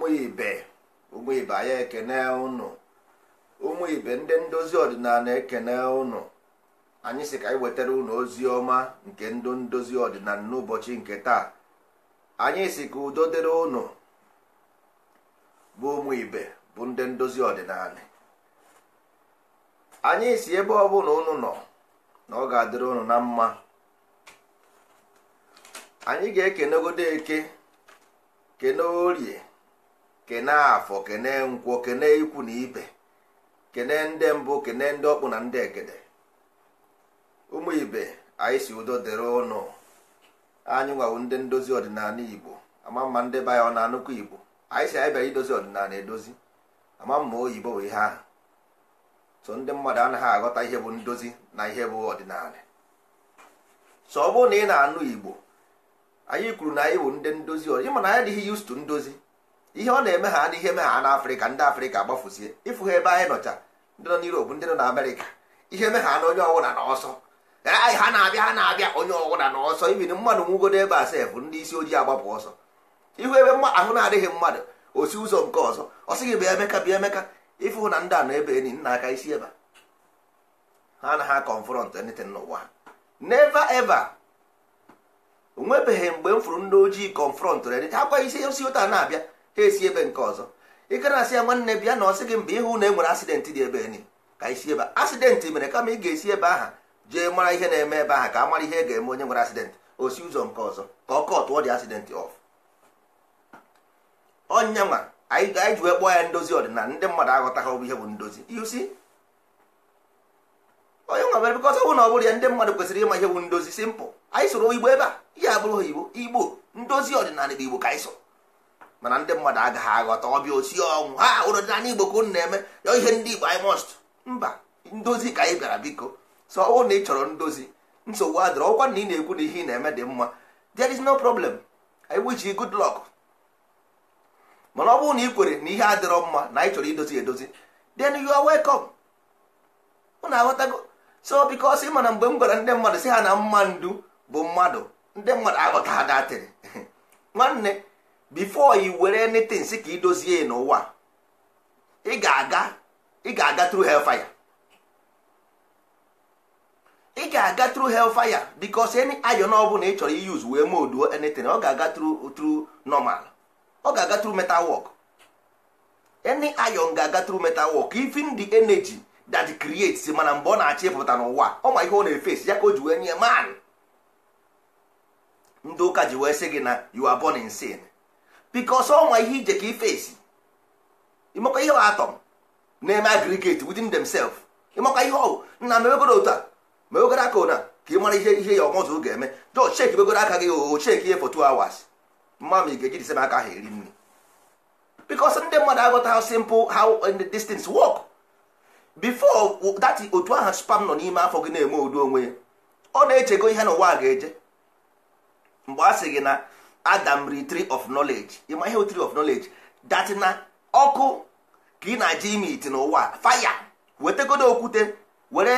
ụmụ ibe ụmụ ibe anyị ekene ụnụ ụmụ ibe ndị ndozi ọdịnala ekene ụnụ anyị sị ka anyị wetara ụnụ ozi ọma nke ndụ ndozi ọdịnala n'ụbọchị nke taa anyị sị ka udo dịrị ụnụ bụ ụmụ ibe bụ ndị ndozi ọdịnala anyị si ebe ọ bụla ụnụ nọ na ọ ga-adịrị ụnụ na mma anyị ga-ekenegodo eke kene orie kene afọ kene nkwọ kene ikwu na ibe kene ndị mbụ kene ndị ọkpụ na ndị egede ụmụ ibe anyị si udo dịrị ụnụ anyị nwawo ndị ndozi ọdịnala igbo ama mma ndị be ọ na anụkwu igbo anyị si anyị bịara idozi ọdịnala edozi ama mma oyibo bụ ihe ahụ so ndị mmadụ anaghị aghọta ihe bụ ndozi na ihe bụ ọdịnala so ọ bụrụ na ị na-anụ igbo anyị kwuru na anyị bụ ndị ndozi ọdịnala ịma na anyị adịghị yustu ndozi ihe ọ na-eme ha na ihe eme na ndị afrịka gbafuzie ịfụ ha ebe anyị nọcha ndị nọ n'Europe ndị nọ na amerịka ihe eme ha na onye ọwụla na ọsọ ha na-abịa ha na-abịa onye ọwụla na ọsọ ibin mmadụ nwugodo ebe a sef ndị isi ojii agbapụ ọsọ ihu ebe ahụ na-adịghị mmadụ osi ụzọ nke ọzọ ọ sị bịa emeka bịa emeka ịfụ na ndị a na ebe enyi nna aka isi ebe ha na ha confront anything n'ụwa never ever nwebeghị mgbe m fụrụ ndị ojii confront ha kwa isi osi ụta na-abịa ha esi ebe nke ọzọ ịkara asị ya nwanne bịa na ọ sị gị mba ịhụ na e nwere dị ebe ni ka isi ebe asidenti mere kama ị ga-esi ebe aha jee mara ihe na-eme ebe aha ka a mara ihe e ga-eme onye nwere asidenti o si ụzọ nke ọzọ ka ọ kọtụọ dị asidenti ọf ọnyanwa anyị ji wee kpọọ ya ndozi ọdịnala ndị mmadụ aghọtaghị ọbụ ihe bụ ndozi yusi onye nwa mere bikọta ọbụ na ọ bụrụ ya ndị mmadụ kwesịrị ịma ihe bụ ndozi simpụl anyị soro igbo ebe a ihe abụrụ igbo igbo ndozi ọdịnala igbo ka anyị mana ndị mmadụ agaghị aghọta ọbịa osi ọnwụ ha ụlọ dị n'ala igbo unu na-eme ya ihe ndị igbo anyị mọst mba ndozi ka anyị bịara biko so ọ na ị chọrọ ndozi nsogbu adịrọ ọkwa na ị na-ekwu na ihe ị na-eme dị mma there is no problem I wish you good luck mana ọ bụrụ na ị kwere na ihe adịrọ mma na anyị chọrọ idozi edozi then you are welcome unu aghọtago so because ị mana mgbe m gwara ndị mmadụ si ha na mma ndu bụ mmadụ ndị mmadụ aghọta ha datịrị nwanne before i were anything si ka idozie n'ụwa ga-aga ị ga-aga through hellfire ị ga-aga through hellfire because any iron ọ bụla ị chọrọ iyuz wee moduo anything ọ ga-aga through through normal ọ ga-aga through metal work any iron ga-aga through metal work even the energy that creates mana mgbe ọ na achị ịpụta n'ụwa ọ ma ihe ọ na efes ya ka o ji wee nye man ndị ụka ji wee sị gị na you are born in sin because ọnwa ihe ije ka ifesi ịmakwa ihe atọm na-eme aggregate within themselves ịmakwa ihe ọwụ nna mewegoro otu a mewegoro aka ka ị mara ihe ihe ya ọmụzụ ga-eme jọ cheki begoro aka gị oo cheki ihe for two hours mma ma ị ga-eji disem aka ha eri nri because ndị mmadụ agụta how simple how and these things work before that otu aha spam nọ n'ime afọ gị na-eme udo onwe ya ọ na-echego ihe na ụwa a ga-eje mgbe a sị gị na adam ri tree of knowledge ịma ihe tree of knowledge datina na ọkụ ka ị na-aja ime iti n'ụwa faya wetegodo okwute were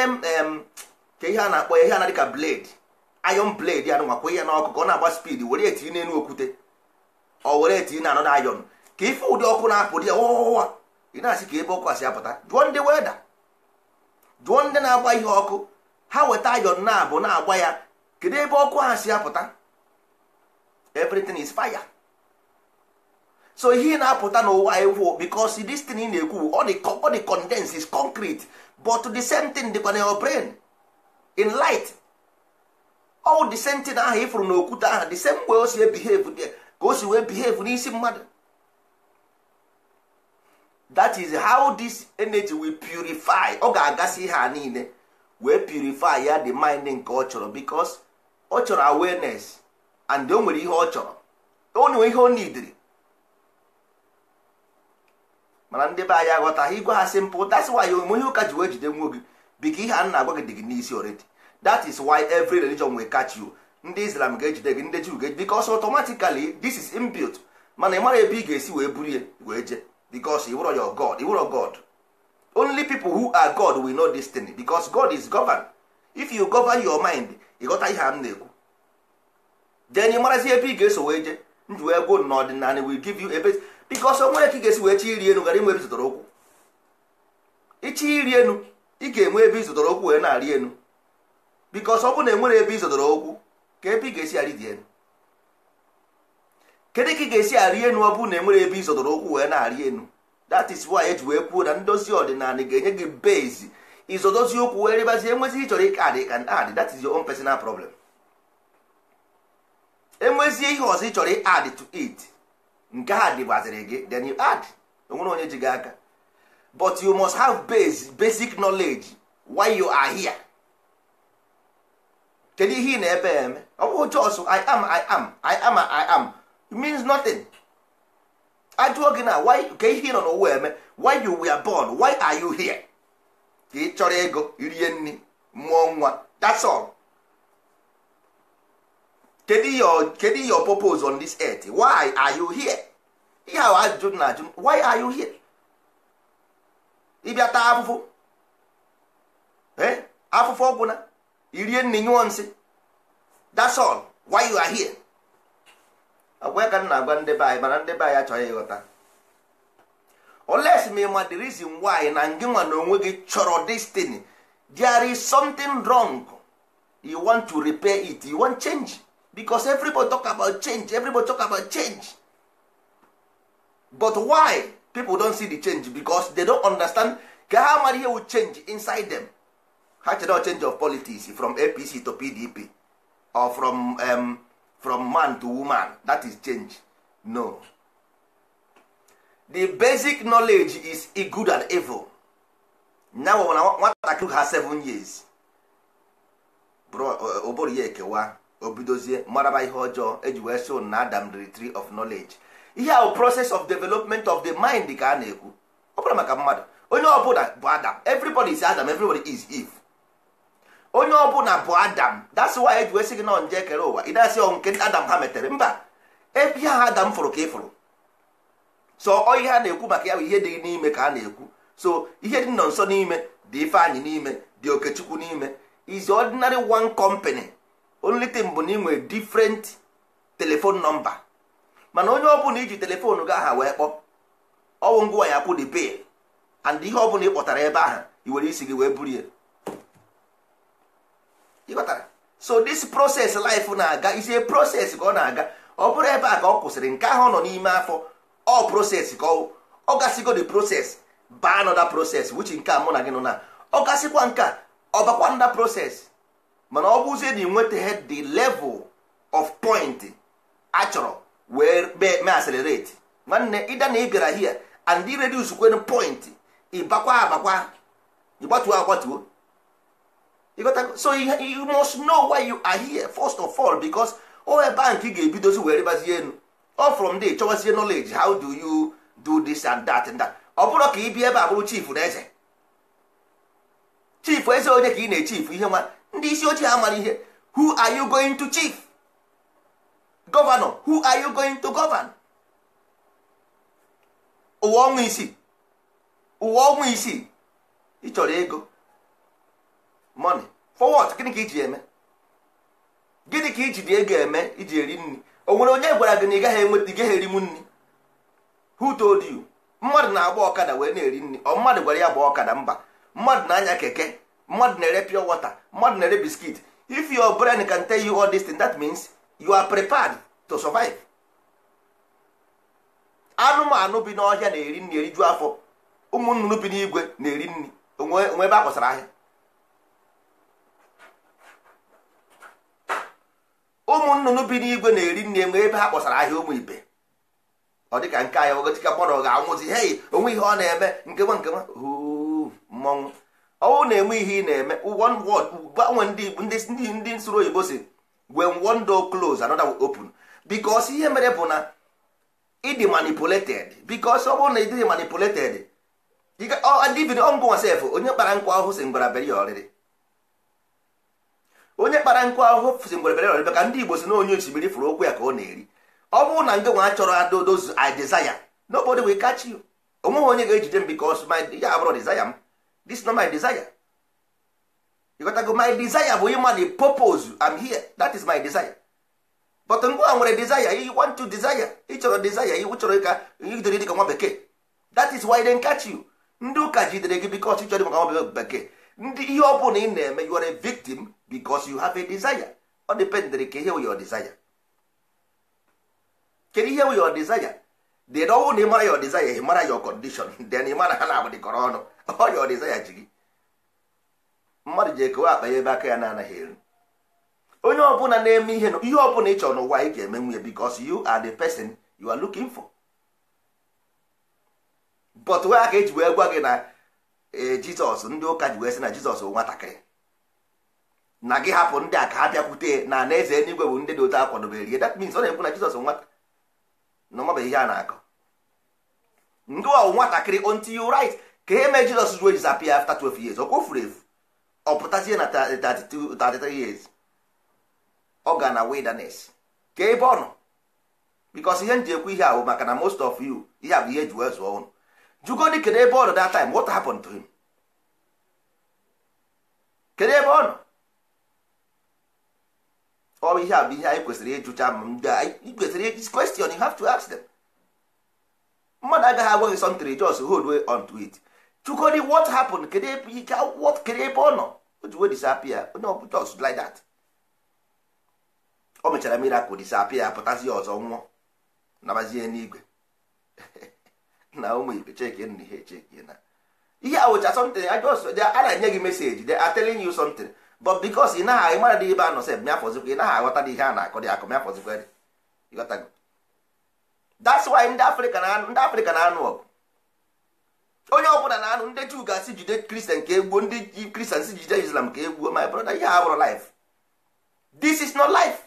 ka ihe a na-akpọ ya ihe na dịka blade iron blade ya nwakwa ya n'ọkụ ka ọ na-agba speed were etiri n'elu okwute ọ were etiri na na iron ka ife ụdị ọkụ na-apụ dị ya ụwa ị na-asị ka ebe ọkụ asị apụta jụọ ndị weda jụọ ndị na-agba ihe ọkụ ha weta iron na-abụ na-agba ya kedu ebe ọkụ ha si apụta everything is fire so ihe na-apụta n'ụwa ewu because this thing na-ekwu all the, condense is concrete but the same thing dịkwa na your brain in light all the same thing ahụ ifuru n'okwute ahụ the same way o si behave there ka o si wee behave n'isi mmadụ that is how this energy will purify ọ ga-agasị ihe a niile wee purify ya the mind nke ọ chọrọ because ọ chọrọ awareness and o nwere ihe ọ chọrọ o nwere ihe o idiri mana ndị be anyị aghọtaghị igwe ha simpụl that's why ya omume ihe ụka ji wee jide nwa gị biko ihe a na-agwa gị dị gị n'isi already that is why every religion will catch you ndị islam ga-ejide gị ndị juu ga-ejide because automatically this is inbuilt mana ị mara ebe ị ga-esi wee buru ya wee jee because you were your god you were god only people who are god will know this thing because god is governed if you govern your mind ị ghọta ihe m na-ekwu then ị marazi ebe ị ga-eso wee jee ndụ wee go n'ọdịnala will give you ebe biko ọsọ nwere ka ị ga-esi wee chi iri enu gara inwe ebe zụtara okwu ichi iri enu ị ga-enwe ebe ịzụtara okwu wee na-arị enu biko ọsọ ọbụ na enwere ebe ịzụtara okwu ka ebe ị ga-esi arị dị enu kedu ka ị ga-esi arị enu ọ bụ na enwere ebe ịzụtara okwu wee na-arị enu that is why eji wee kwuo na ndozi ọdịnala ga-enye gị base ịzọdozi okwu wee rịbazie enwezi ị chọrọ ike adị ka adị ah, that is your own personal problem enwezie ihe ọzọ ị chọrọ ị to it nke ha dị dịbaziri gị then you add onwere onye ji gị aka but you must have base basic knowledge why you are here kedu ihe ị na-ebe eme ọ bụghị chọsụ i am i am i am i am it means nothing ajụọ gị na why ka ihe ị nọ n'ụwa eme why you were born why are you here ka ị chọrọ ego irie nri mụọ nwa that's all. kedu your purpose on this earth why are you here ihe ahụ ajụjụ na ajụ why are you here ịbịa taa afụfụ afụfụ ọgwụna irie nne nyụọ nsị that's all why you are here agwa ka m na-agwa ndị be anyị mana ndị be anyị achọghị ịghọta oles ma the reason why na ngị nwa na onwe gị chọrọ destiny there is something wrong you want to repair it you want change because everybody talk about change everybody talk about change but why people don see the change because they don understand ka ha mara ihe will change inside them ha chere change of politics from apc to pdp or from, um, from man to woman that is change no the basic knowledge is good and evil now nwatakịrị ha 7 years ụbụrụ ya ekewa obidozie maraba ihe ọjọọ eji wee so na adam the tree of knowledge ihe ahụ process of development of the mind ka a na-ekwu ọ bụla maka mmadụ onye ọbụla bụ adam everybody is adam everybody is eve onye ọbụla bụ adam that's why eji wee sị gị na nje kere ụwa ị dasị ọnwụ nke adam ha metere mba ihe ha adam fụrụ ka ị fụrụ so ihe a na-ekwu maka ya bụ ihe dị n'ime ka a na-ekwu so ihe dị nọ nso n'ime dị ifeanyị n'ime dị okechukwu n'ime is ordinary one company only thing bụ na ị nwere different telephone number mana onye ọbụla iji telefoonu gị aha wee kpọ ọwụ ngwa ya akwụ the bill and ihe ọbụla ị kpọtara ebe ahụ i were isi gị wee buru ya kpọtara so this process life na-aga isi process ka ọ na-aga ọ bụrụ ebe a ka ọ kwụsịrị nke ahụ ọ nọ n'ime afọ ọ process ka ọ ọ gasịgo the process baa nọda proses wuchi nke a mụ na gị nọ na ọ gasịkwa nke a ọ bakwa nda proses mana ọ bụzie na nwetaghị the level of point achọrọ wee mee accelerate nwanne ịda na ị bịara hia and ị reduce kwen point ịbakwa abakwa ịgbatuo agbatuo so you must know why you are here first of all because o ebe ga-ebidozi wee rịbazie elu all from there chọwazie knowledge how do you do this and that and that ọ bụrụ ka ị bịa ebe a bụrụ chief na eze chief eze onye ka ị na ihe nwa ndị isi ochie mara ihe who are you going to chief governor who are you going to govern ụwa ọnwa isi ụwa ọnwa isii ị chọrọ ego money for what gịnị ka iji eme gịnị ka iji dị ego eme iji eri nri o nwere onye gwara gị na ị gaghị enweta gaghị eri m nri who told you mmadụ na-agba ọkada wee na-eri nri ọ mmadụ gwara ya gba ọkada mba mmadụ na-anya keke mmadụ na-ere pure water mmadụ na-ere biskit if your brain can tell you all this thing that means you are prepared to survive anụmanụ bi n'ọhịa na-eri nri eriju afọ ụmụ bi n'igwe na-eri nri onwe ebe a kwasara ahịa ụmụ bi n'igwe na-eri nri enwe ebe ha kpọsara ahịa ụmụ ibe ọ dịka nke anyị ogotika mmadụ ga-anwụzi hei onwe ihe ọ na-eme nkewa nkewa mmọnwụ ọnwụ na-enwe ihe ị na-eme one word gbanwe ndị ndị nsoro oyibo si when one door close another will open bikos ihe mere bụ na ịdị manipulated bikos ọ bụrụ na ịdịghị manipulated divin ọngụnwa sef onye kpara nkwa ahụ si ngwara bere ọrịrị onye kpara nkwa ahụ si ngwara bere ọrịrị ka ndị igbo si na onye osimiri fụrụ okwu ya ka ọ na-eri ọ bụrụ na ngịnwa chọrọ adodozu desire nobody will catch you onweghị onye ga-ejide m bikos ya abụrụ desire m this not my desire you got to my desire bụ ịma the purpose am here that is my desire but mgbe a nwere desire you want to desire ị chọrọ desire iwu chọrọ ka jidere dịka nwa bekee that is why they catch you ndị ụka jidere gị because ịchọrọ maka nwa bekee ndị ihe ọ bụla ị na-eme you are a victim because you have a desire ọ dependere ka ihe wụ your desire kedu ihe wụ your desire dị na ọnwụ na ịmara ya ọdịzaya mara ya kọndishọn dị na ịmara ha na agbadịkọrọ ọnụ ọya ya ji gị mmadụ ji ekewa akpa ya ebe aka ya na-anaghị eri onye ọbụla na-eme ihe ihe ọbụla ị chọrọ n'ụwa ị ga-eme nwunye because you are the person you are looking for but wee aka eji wee gwa gị na e, jizọs ndị ụka ji wee sị na jizọs nwatakịrị na gị hapụ ndị a ka ha bịakwute na na eze eluigwe bụ ndị dị otu akwadoberie that means ọ na-ekwu na jizọs nwata na ọ ihe a na-akọ ndị ọwụ nwatakịrị until you right ka e mee Jizọs ruo ejizi apịa afta 12 years ọ kwofuru efu ọ pụtazie na 33 years ọ ga na wilderness ka ebe ọ nọ because ihe m ji ekwu ihe ahụ maka na most of you ihe a bụ ihe e ji wee zụọ ụnụ jugodi kedu ebe ọ nọ that time what happened to him kedu ebe ọ nọ ọ bụ ihe a bụ ihe anyị kwesịrị ịjụcha ma ndị a kwesịrị question you have to ask them. mmadụ agaghị agwa gị sọntịrị jos hold on to it chukodi what happened kedu ebe ike akwụkwọ kedu ebe ọ nọ o ji wee disapia onye ọ bụla jos like that o mechara miracle disapia pụtazie ọzọ nwụọ nabazie n'igwe na ụmụ ibe cheke nna ihe cheke na ihe awụcha a wụcha something a na-enye gị meseji de are telling you something but because ị naghị mara dị ebe a nọ sef mịafọzikwa ị naghị aghọta dị ihe a na-akọ dị akọ mịafọzikwa ịghọtago that's why ndị afrịka na anụ ndị afrịka na anụ ọgụ onye ọbụla na anụ ndị juu ga-asị jide kristian ka egbuo ndị kristian si jide islam ka egbuo my brother ihe abụrụ life this is not life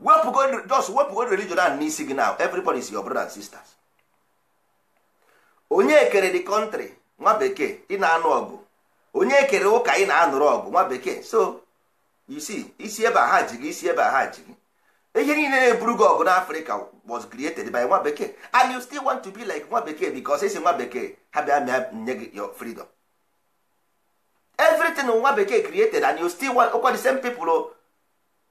wepụgo just wepụgo religion ahụ n'isi gị now everybody is your brother and sisters onye kere the country nwa bekee ị na-anụ ọgụ onye kere ụka ị na-anụrụ ọgụ nwa bekee so you see isi ebe a ha ji gị isi ebe a ha ji gị ihe niile na-eburu Africa ọgụ n'afrịka was created by nwa bekee and you still want to be like nwa bekee because esi nwa bekee ha bịa mịa nye gị your freedom everything nwa bekee created and you still want okwa the same people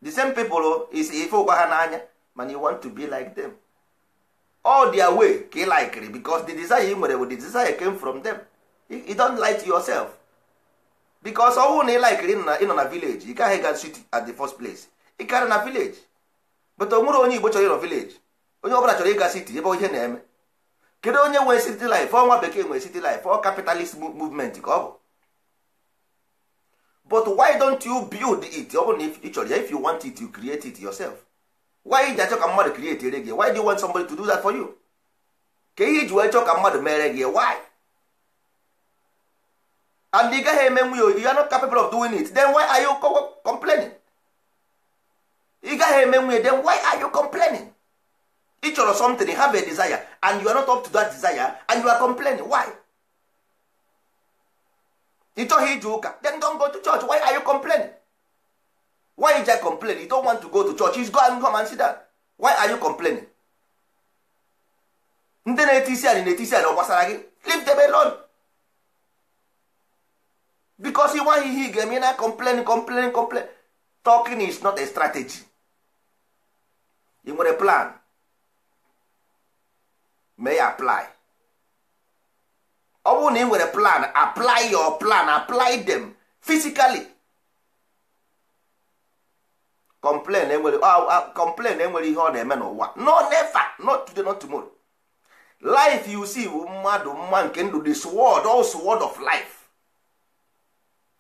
the same people is ife ụkwa ha n'anya mana you want to be like them all their way ka ị likiri because the desire ị nwere the desire came from them you don't light to yourself because ọnwụ na ị likiri ịnọ na village ị gaghị ga city at the first place ị karị na village but o nwere onye igbo chọrọ ịrọ vileji onye ọbụla chọrọ ịga siti ebe ihe na-eme kedu onye nwee city life ọnwa bekee nwee city life ọ capitalist movement ka ọ bụ but why don't you build it ọ bụrụ na ị chọrọ ya if you want it you create it yourself why ji achọ ka mmadụ create ere gị why do you want somebody to do that for you ka ihe iji wee chọọ ka mmadụ mere gị why and ị gaghị eme nwe ya you are not capable of doing it then why are you complaining ị gaghị eme nwunye then why are you complaining ị chọrọ something have a desire and you are not up to that desire and you are complaining why ị chọghị ije ụka then don't go to church why are you complaining why you just complain you don't want to go to church you go and come and see down why are you complaining ndị na-eti isi anyị na-eti isi anyị ọ gị leave them alone because ị nwaghị ihe ị ga-eme na complain complain complain talking is not a strategy ị nwere plan mee ya apply ọ bụrụ na ị nwere plan apply your plan apply them physically complain enwere complain enwere ihe ọ na-eme n'ụwa no never not today not tomorrow life you see bụ mmadụ mma nke ndụ the sword all sword of life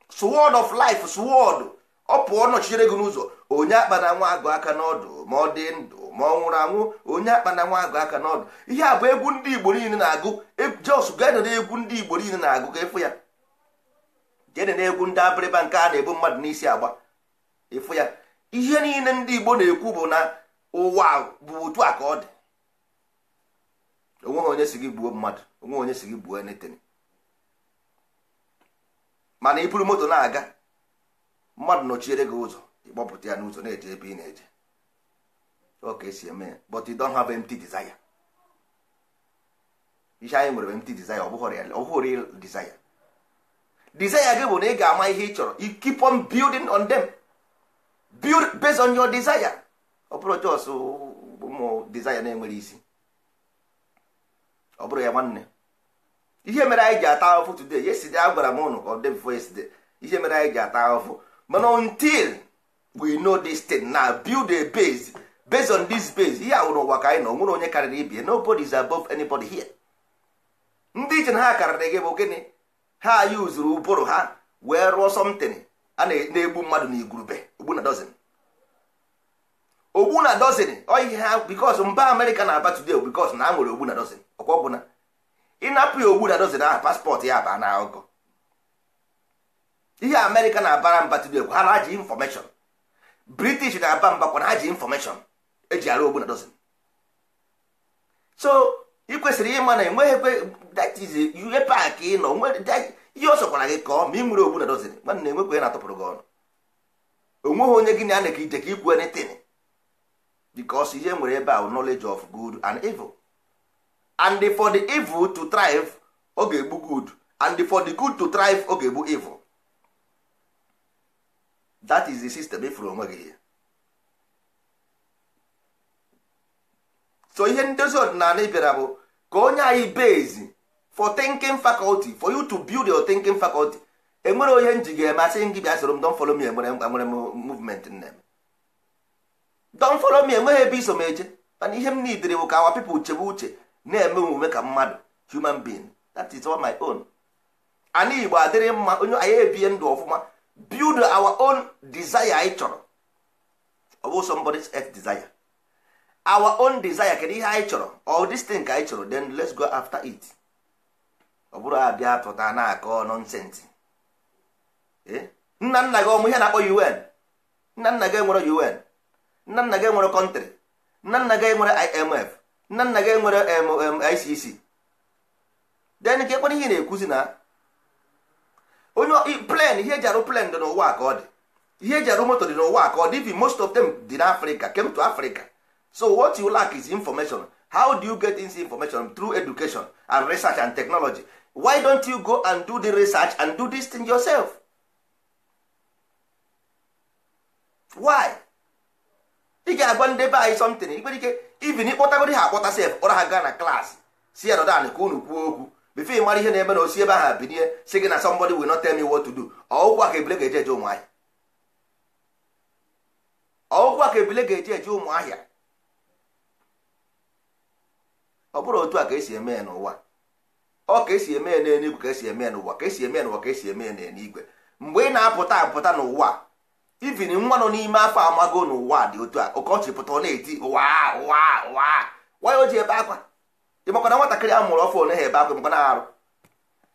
sword of life sword ọ pụọ nọchitere gị n'ụzọ onye akpana nwa agụ aka n'ọdụ ma ọ dị ndụ ma ọ nwụrụ anwụ onye akpana nwa agụ aka n'ọdụ ihe a bụ egwu ndị igbo niile na-agụ jos gedere egwu ndị igbo niile na-agụ ka ịfụ ya jedena egwu ndị abịrịba nke a na-ebu mmadụ n'isi agba ịfụ ya ihe niile ndị igbo na-ekwu bụ na ụwa bụ otu a ka ọ dị onweghị onye si gị gbuo mmadụ onweghị onye si gị gbuo enetin mana ịpụrụ moto na-aga mmadụ nọchiere gị ụzọ ịkpọpụta ya n'ụzọ na-eje ebe ị na-eje oke esi eme ya but you don't have empty desire ihe anyị nwere empty desire ọ bụghị real desire desire gị bụ na ị ga-ama ihe ị chọrọ you keep on building on them build based on your desire ọ bụrụ jos ụmụ desire na-enwere isi ọ bụrụ ya nwanne ihe mere anyị ji ata ahụfụ today yesterday agwara m ụnụ ka ọ dị before yesterday ihe mere anyị ji ata ahụfụ mana until we know this thing na build a base based on this base ihe awụrụ ụwa ka anyị na onwere onye karịrị ibie nobody is above anybody here ndị iche na ha karịrị gị bụ gịnị ha yuzuru ụbụrụ ha wee rụọ something a na-egbu mmadụ na igurube ogbu na dozin oyi ha because mba amerịka na-aba today because na a nwere ogbu na dozin ọkwa ọgwụ ịnapụ ya ogbu na dozin ahụ paspọtụ ya baa na ọgọ ihe amerịka na-abara mba today gwara ji infọmeshọn british na-aba mba kwana ha e ji infọmeshọn eji arụ ogbu na dozin so ị kwesịrị ịma na enweghị that is e park pak nọ ihe ọ sọkwara gị kọọ ma ị nwere ogbu na dozin nwanne enwekwe na atụpụrụ gị ọnụ onweghị onye gị na ana ka ije ka ikwu anything because ihe nwere ebe ahụ knowledge of good and evil and for the evil to thrive ọ ga-egbu good and for the good to thrive ọ ga-egbu evil that is the system ifuru onwe gị so ihe ndozi ọdịnala ị bụ ka onye anyị base for thinking faculty for you to build your thinking faculty enwere onye m ji ga-eme asị gị bịa soro m don follow me enwere nwere movement nne m don follow me enweghị ebe iso m eje mana ihe m nidiri bụ ka awa people chebe uche na-eme omume ka mmadụ human being that is all my own ana igbo adịrị mma onye anyị ebie ndụ ọfụma build our own desire anyị chọrọ ọ bụ somebody's earth desire our own desire kedu ihe anyị chọrọ all this thing ka anyị chọrọ then let's go after it ọ bụrụ abịa pụta na-akọ nọnsensị eh? nna nna gị ọmụ ihe na-akpọ UN nna nna gị nwere UN nna nna gị nwere kọntrị nna nna gị nwere IMF nna nna gị nwere ICC then nke ekwere ihe na-ekwuzi na onye plen ihe eji arụ plen dị n'ụwa ka ọ dị ihe eji arụ moto dị n'ụwa ka ọ dị most of them dị n'africa came to africa so what you lack is information how do you get this information through education and research and technology why don't you go and do the research and do this thing yourself why ị ga-agwa ndị be anyị something ikpere ike even ịkpọtagoro ha akpọta sef ọra ha gaa na klaasị si ya nọdan ka unu kwuo okwu bifo ị mara ihe na-eme na osi ebe ahụ binie si gị na somebody will not tell me what to do ọwụkwa ka ebule ga-eje eje ụmụahịa ọwụkwa ka ga-eje eje ụmụahịa ọ bụrụ otu a ka esi eme ya n'ụwa ọ ka esi eme ya n'eluigwe ka esi eme ya n'ụwa ka esi eme ya n'ụwa ka esi eme ya n'eluigwe mgbe ị na-apụta apụta n'ụwa ivin nwa nọ n'ime afọ amago n'ụwa dị otu a ọkọchị pụta ọ na-eti ụwa ụwa ụwa nwa ya o ji ebe akwa ịmakwa na nwatakịrị a mụrụ ọfụ onye ha ebe akwa na-arụ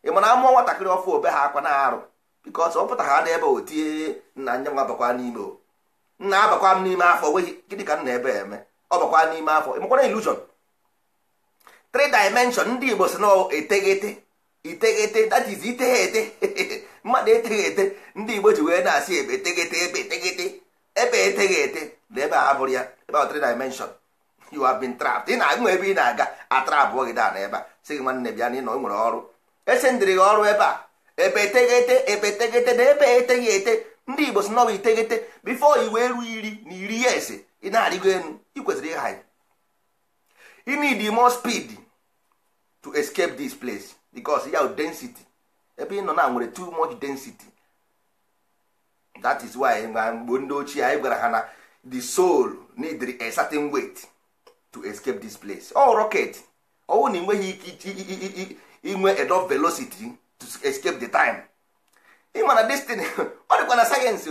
ịma na amụọ nwatakịrị ọfụ obe ha akwa na-arụ bikọs ọ pụta ha n'ebe o tie nna nya nwa n'ime o nna abakwa m n'ime afọ nweghị gịnị ka nna ebe eme ọ bakwa n'ime afọ ịmakwa na ilusion three ndị igbo si na eteghete iteghete that is ete mmadụ eteghete ndị igbo ji wee na-asị ebe eteghete ebe eteghete ebe eteghete na ebe a abụrụ bụrụ ya ebe ahụ three dimension you have been trapped ị na-anwe ebe ị na-aga atrapụọ gị da na ebe a sị gị nwanne bịa na ị nọ nwere ọrụ esendịrị gị ọrụ ebe a ebe eteghete ebe eteghete na ebe eteghị ete ndị igbo si nọwa iteghete bifo iwe ru iri na iri ya ese ị na-arịgo enu ị kwesịrị ịha ya ị need more speed to escape this place because ya density ebe ị nọ na nwere too much density that is why mgbe ndị ochie anyị gwara ha na the soul need a certain weight to escape this place ọ oh, rocket ọwụ na ịnweghị ike inwe enough velocity to escape the time ịma na destiny ọ dịkwa na sayensị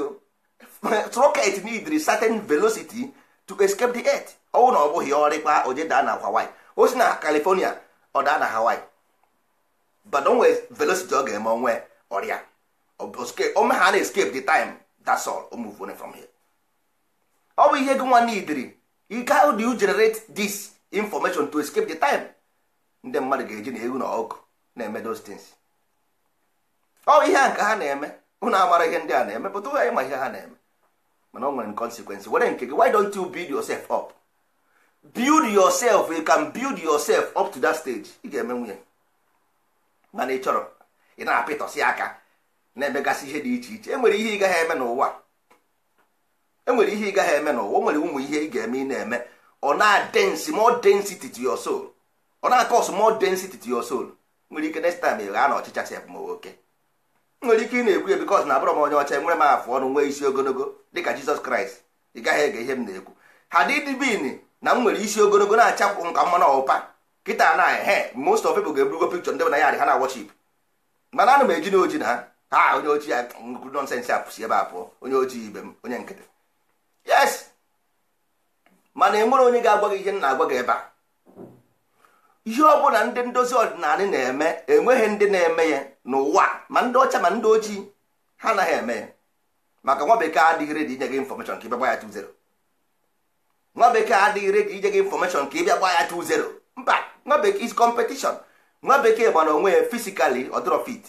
rocket need certain velocity to escape the earth ọwụ na ọ bụghị ọrịkwa oje na hawaii o oh, si na california ọ daa na hawaii but o nwere velocity ọ ga-eme onwe ọrịa ome ha na escape the time that's all o move from here ọ bụ ihe gị nwa idiri how do you generate this information to escape the time ndị mmadụ ga-eji na egwu na ọkụ na-eme those things ọ ihe a nke ha na-eme ụnụ amara ihe ndị a na-eme pụta ụgha ịma ihe ha na-eme mana o nwere consequence were nke gị why don't you build yourself up build yourself you can build yourself up to that stage ị ga-eme nwunye mana ị chọrọ ị na-apịtọsị aka na-emegasị ihe dị iche iche e nwere ihe ị gaghị eme n'ụwa enwere ihe ị gaghị eme n'ụwa o nwere ụmụ ihe ị ga-eme ị na-eme ọ na-adensi more density to your soul ọ na-akọs more density to your soul nwere ike next time ị ghaa na ọchịcha sef ma oke nwere ike ị na-ekwu ya bikos na abụrọ m onye ọcha nwere m afụ ọnụ nwee isi ogologo dịka Jizọs Kraịst ị gaghị ege ihe m na-ekwu ha dịdibin na m nwere isi ogologo na-achakwụ nka mmanụ ọpa kịta na ehe most of people ga-eburugo pikchọ ndị na ya ha na wọchip mana anụ m eji na oji na ha onye ojii ya nnukwu apụsi ebe a pụọ onye ojii ibe m onye nkịtị yes mana enwere onye ga-agwa gị ihe na-agwa gị ebe a ihe ọbụla ndị ndozi ọdịnala na-eme enweghị ndị na-eme ya n'ụwa ma ndị ọcha ma ndị ojii ha anaghị eme ya maka nwa bekee adịghị redi inye gị infọmeshọn ka ịbịa gba ya tu 0 nwa bekee adịghị redi inye gị infọmeshọn ka ịbịa gba ya tu 0 mba nwa bekee is competition nwa bekee gbara onwe ya fisikali ọdịrọ fit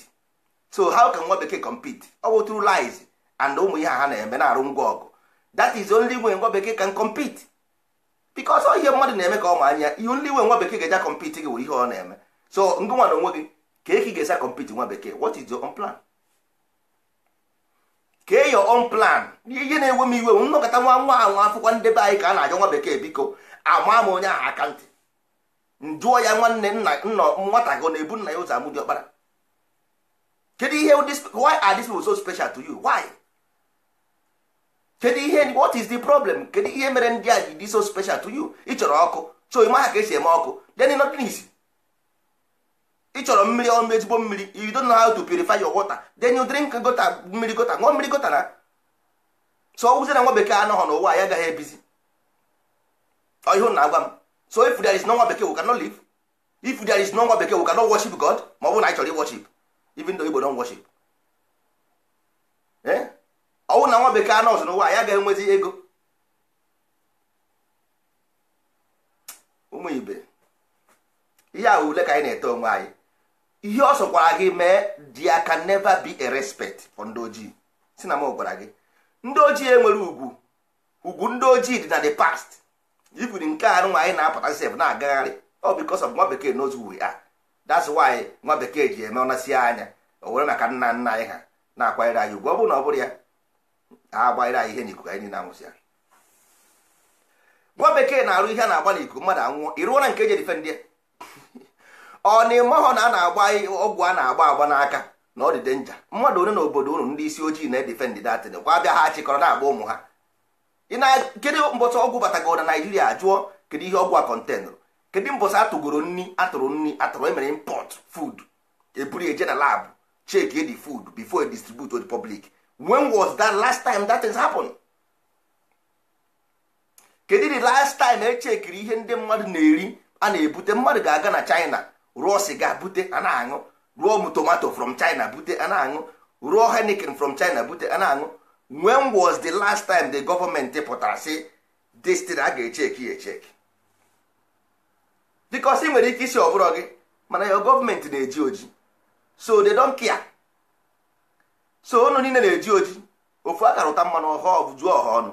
so how can nwa bekee compete ọ bụ through lies and ụmụ ihe ha na-eme na-arụ ngwa ọgụ that is only way nwa bekee can compete because ọ ihe mmadụ na-eme ka ọ ma anya ihe only way nwa bekee ga-eja compete gị wụ ihe ọ na-eme so ndị nwa na onwe gị ka eki ga-esa compete nwa bekee what is your own plan kee your own plan ihe na enwe m iwe nnọkọta nwa nwa anwa afụkwa ndebe anyị ka a na-ajọ nwa bekee biko ama m onye aha akantị njụọ ya nwanne nna nwata gị ọ na-ebu nna ya ụzọ amụ dị ọkpara kedu ihe why are these people so special to you why kedu ihe what is the problem kedu ihe mere ndị a ji dị so special to you ịchọrọ ọkụ so ịma ha ka esi eme ọkụ then nothing is ịchọrọ mmiri ọnụ ezigbo mmiri you don't know how to purify your water then you drink gota mmiri gota ṅụọ mmiri gota na so ọ na nwa bekee anọghọ n'ụwa ya agaghị ebizi ọhịa na agwa m so if there is no nwa bekee we cannot live if there is no nwa bekee we cannot worship God ma ọ bụrụ na anyị chọrọ i even though Igbo don't worship eh wụ na nwa bekee nọọsụ n'ụwa ya ga-enwezi ego ụmụ ibe ihe a ule ka anyị na-ete onwe anyị ihe ọ sọkwara gị mee dia can never be a respect for ndị ojii si na m gwara gị ndị ojii enwere ugwu ugwu ndị ojii dị na the past ifiri nke a nwa anyị na-apụta sef na-agagharị ọ because of nwa bekee knows who we are that's why nwa bekee ji eme ọnasị anya o were maka nna nna anyị ha na-akwanyere anyị ugwu ọ bụrụ na ọ bụrụ ya ha anyị ihe n'ikuku anyị na anwụsị ya gwa bekee na-arụ ihe a na-agba n'ikuku mmadụ anwụọ ịrụọ na nke eji difendị ya ọ na ịmahọ na a na-agba ọgwụ a na-agba agba n'aka na ọ dị denja mmadụ onye na obodo unu ndị isi ojii na-edifendị datịn kwa abịa ha chịkọrọ na-agba ụmụ ha kedu mbọsị ọgwụ batagoro na naijiria jụọ kedu ihe ọgwụ a kọntenụrụ kedu mbọsị atụgoro nri atụrụ nri atụrụ emere impọt food eburu eje na labụ cheki edi food before e distribute to the when was that last time that has happened? kedu the last time echekiri ihe ndị mmadụ na-eri a na-ebute mmadụ ga-aga na china rụọ siga bute a na-aṅụ rụọ tomato from china bute ana na-aṅụ rụọ henikin from china bute ana na-aṅụ when was the last time the government pụtara sị destin a ga-echeki ya echeki because ị nwere ike isi ọ gị mana your gọọmenti na-eji oji so they don't care so onu niile na-eji oji ofu akara ụta mmanụ ọhụụ bụ juo ọha ọnụ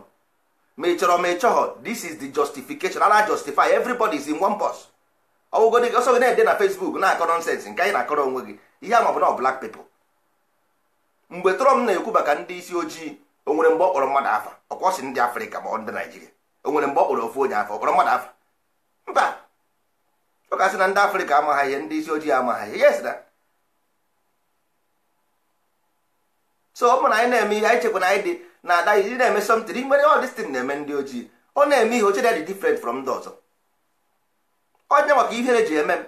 ma ị chọrọ ma ị chọghọ this is the justification ana justify everybody is in one bus dị ọsọ gị na-ede na Facebook na-akọ nọnsensị nke anyị na-akọrọ onwe gị ihe a maọbụ na black people mgbe Trump na-ekwu maka ndị isi ojii o nwere mgbe ọ kpọrọ mmadụ afa ọkwọsị ndị Afrịka ma ọ ndị Naijiria o nwere mgbe ọ kpọrọ ofu onye afa ọkpọrọ mmadụ afa mba ọ kasị na ndị Afrịka amaghị ihe ndị isi ojii amaghị ihe yes na so ọ na anyị na-eme ihe anyị chekwa na anyị dị na ada iji na-eme something nwere all this na-eme ndị ojii ọ na-eme ihe oche dị different from ndị ọzọ onye maka ihere ji eme m